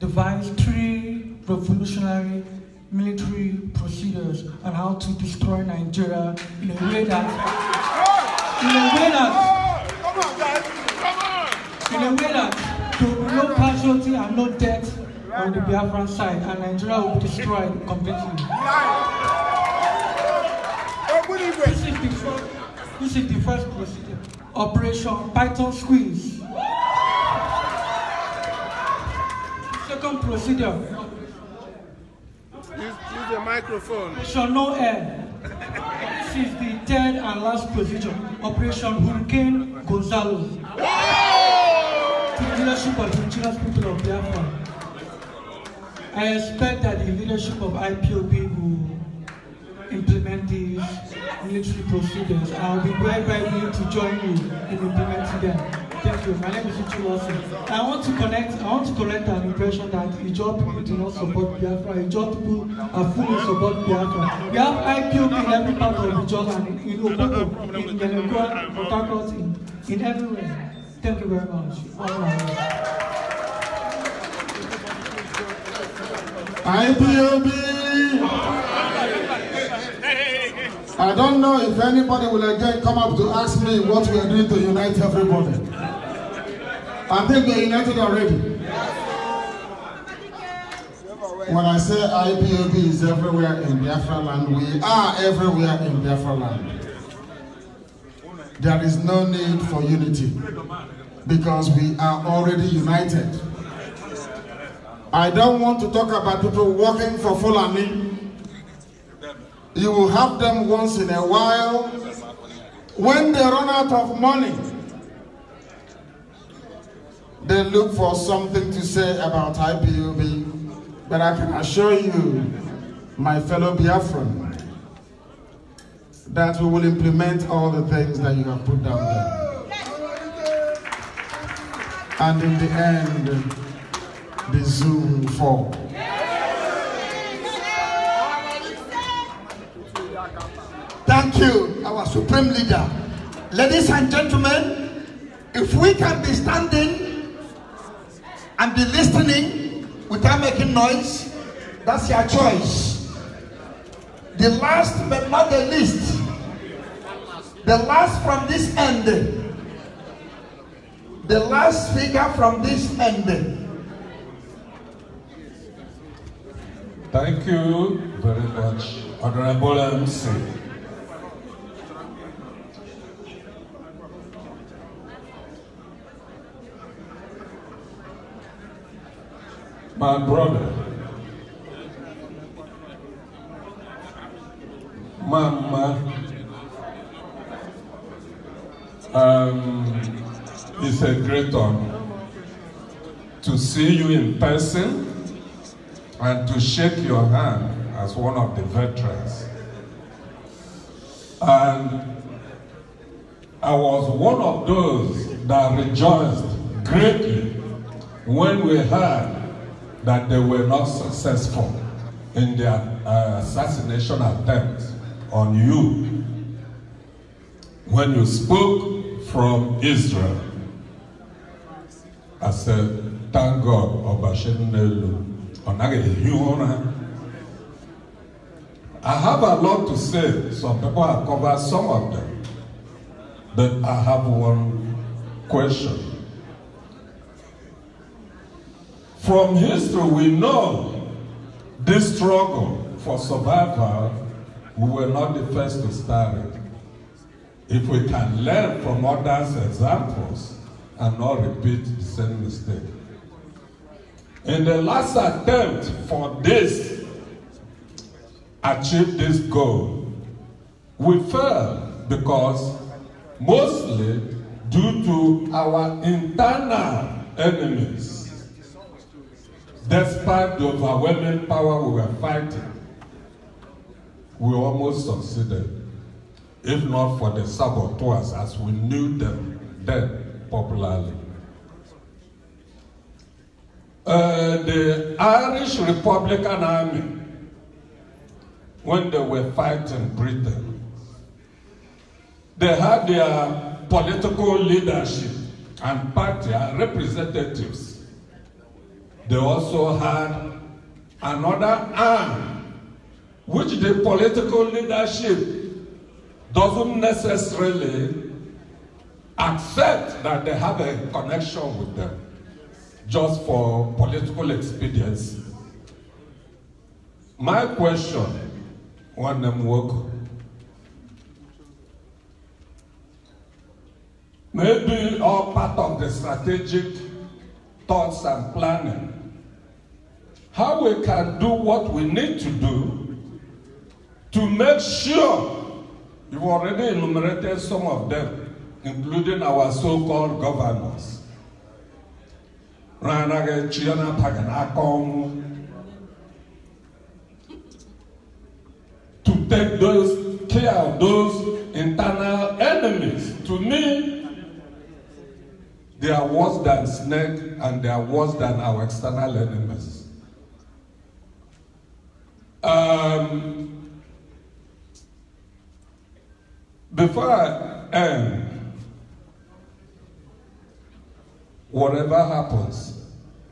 devised three revolutionary military procedures on how to destroy Nigeria in a way that, in a way that, in a way that no casualty and no death on the Biafran side, and Nigeria will be destroyed completely. This is the first, this is the first procedure. Operation Python Squeeze. Second procedure. Use, use the microphone. Operation No Air. This is the third and last procedure. Operation Hurricane Gonzalo. leadership of Indigenous people of Biafra, I expect that the leadership of IPOB will implement these military procedures. I'll be very, very willing to join you in implementing them. Thank you. My name is Uchu Lawson. I want to connect, I want to correct an impression that Ijaw people do not support Biafra. Ijaw people are fully support Biafra. We have IPOB in every part of Ijaw and in Opopo, in Yenagoa, in Harcourt, in, in everywhere. Thank you very much. IPOB! I don't know if anybody will again come up to ask me what we are doing to unite everybody. I think we are united already. When I say IPOB is everywhere in Biafra land, we are everywhere in Biafra land. There is no need for unity because we are already united. I don't want to talk about people working for Fulani. You will have them once in a while. When they run out of money, they look for something to say about IPUB. But I can assure you, my fellow Biafran, that we will implement all the things that you have put down there. And in the end, the Zoom for. fall. Thank you, our supreme leader. Ladies and gentlemen, if we can be standing and be listening without making noise, that's your choice. The last but not the least, the last from this end. The last figure from this end. Thank you very much, Honorable MC. My brother, Mama Um, it's a great honor to see you in person and to shake your hand as one of the veterans. And I was one of those that rejoiced greatly when we heard that they were not successful in their uh, assassination attempt on you. When you spoke from Israel. I said, thank God, Obashenelu. Onagelihu ona. I have a lot to say. Some people have covered some of them. But I have one question. From history, we know this struggle for survival, we were not the first to start it. If we can learn from others' examples and not repeat the same mistake. In the last attempt for this, achieve this goal, we failed because mostly due to our internal enemies. Despite the overwhelming power we were fighting, we almost succeeded. if not for the saboteurs as we knew them then popularly. Uh, the Irish Republican Army, when they were fighting Britain, they had their political leadership and party representatives. They also had another arm, which the political leadership doesn't necessarily accept that they have a connection with them just for political expediency. My question, one them work. Maybe all part of the strategic thoughts and planning. How we can do what we need to do to make sure You've already enumerated some of them, including our so-called governors. To take those care of those internal enemies. To me, they are worse than snake and they are worse than our external enemies. Um, Before I end, um, whatever happens,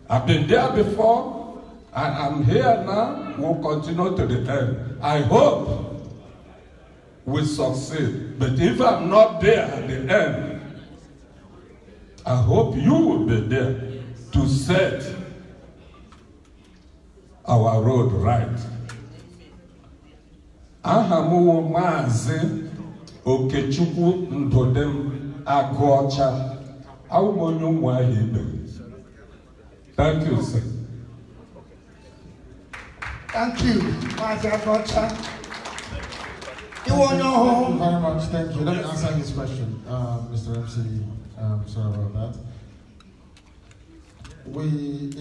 I've been there before, and I'm here now, we'll continue to the end. Um, I hope we succeed. But if I'm not there at the end, I hope you will be there to set our road right. Ahamu m Okechukwu Ndụdịm Agụọcha awụm onye ụmụ ahịa ibe thank you sir thank you Maazị Agụọcha iwe onye ọhụụ very much thank you let me answer this question uh, Mr. MC um, sorry about that we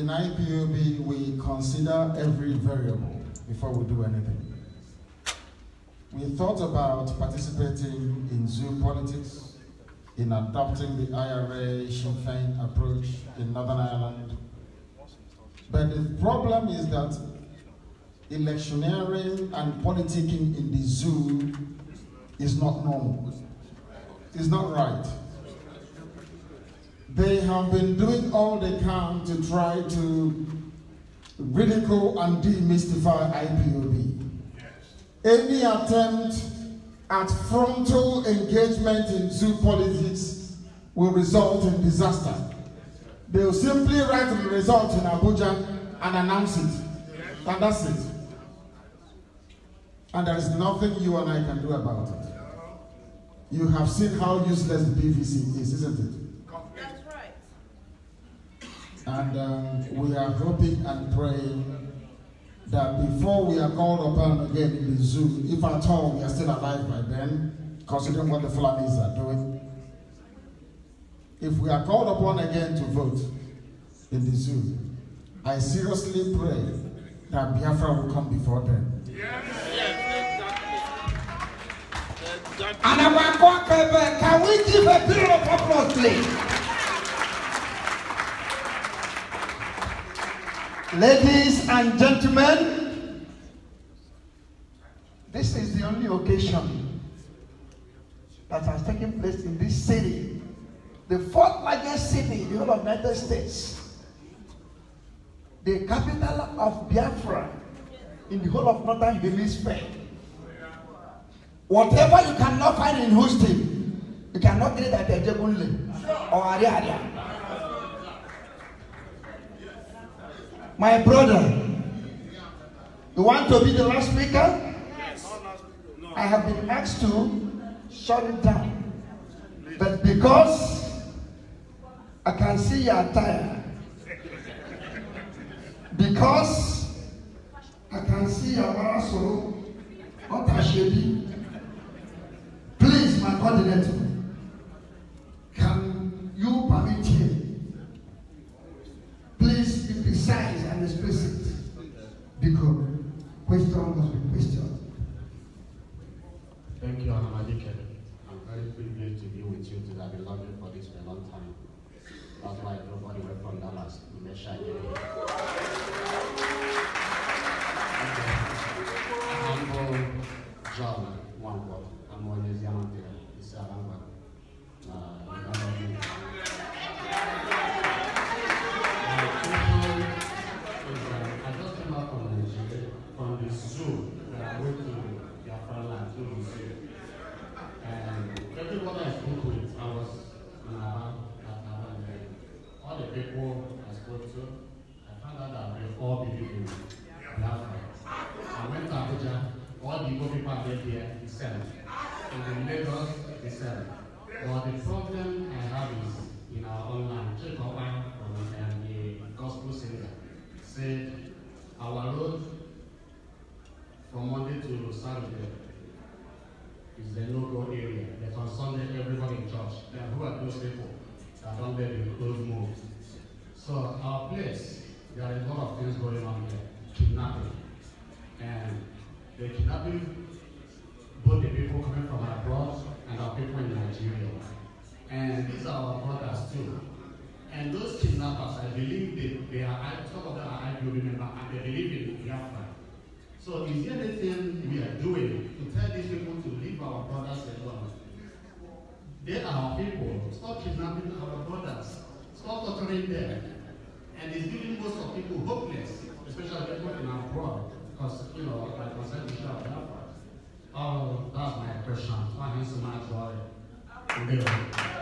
in IPOB we consider every variable before we do anything we thought about participating in zoo politics, in adopting the IRA Sinn Féin approach in Northern Ireland. But the problem is that electioneering and politicking in the zoo is not normal. It's not right. They have been doing all they can to try to ridicule and demystify IPOB. Any attempt at frontal engagement in zoo politics will result in disaster. They will simply write the result in Abuja and announce it. And that's it. And there is nothing you and I can do about it. You have seen how useless the PVC is, isn't it? That's right. And um, we are hoping and praying that before we are called upon again in the zoo, if at all we are still alive by then, considering what the Fulanis are doing, if we are called upon again to vote in the zoo, I seriously pray that Biafra will come before them. Yes. Yes, exactly. Exactly. And uh, can we give a period of applause, please? Ladies and gentlemen, this is the only occasion that has taken place in this city, the fourth largest city in the whole of the United States, the capital of Biafra in the whole of Northern Hemisphere. Whatever you cannot find in Houston, you cannot get it at Ejebunle or Ariaria. My brother, you want to be the last speaker? Yes. I have been asked to shut it down. But because I can see your attire, because I can see you are also not ashamed, please, my coordinator, can you permit me? because question must be questioned. Thank you, Anna Malika. I'm very privileged to be with you today. I've been longing for this for a long time. That's why I went from Dallas to make sure the no-go area. They Sunday, everyone in church. Then who are those people that don't let the close move? So our place, there are a lot of things going on here. Kidnapping. And the kidnapping, both the people coming from abroad and our people in Nigeria. And these are our brothers too. And those kidnappers, I believe they, they are, some of them are IPOB members, and they believe in Biafra. So is there anything we are doing to tell these people to leave our brothers alone? They are people. Stop kidnapping our brothers. Stop torturing them. And it's giving most of people hopeless, especially people in abroad, because, you know, like I said, we have Oh, that's my question. Thank you so much for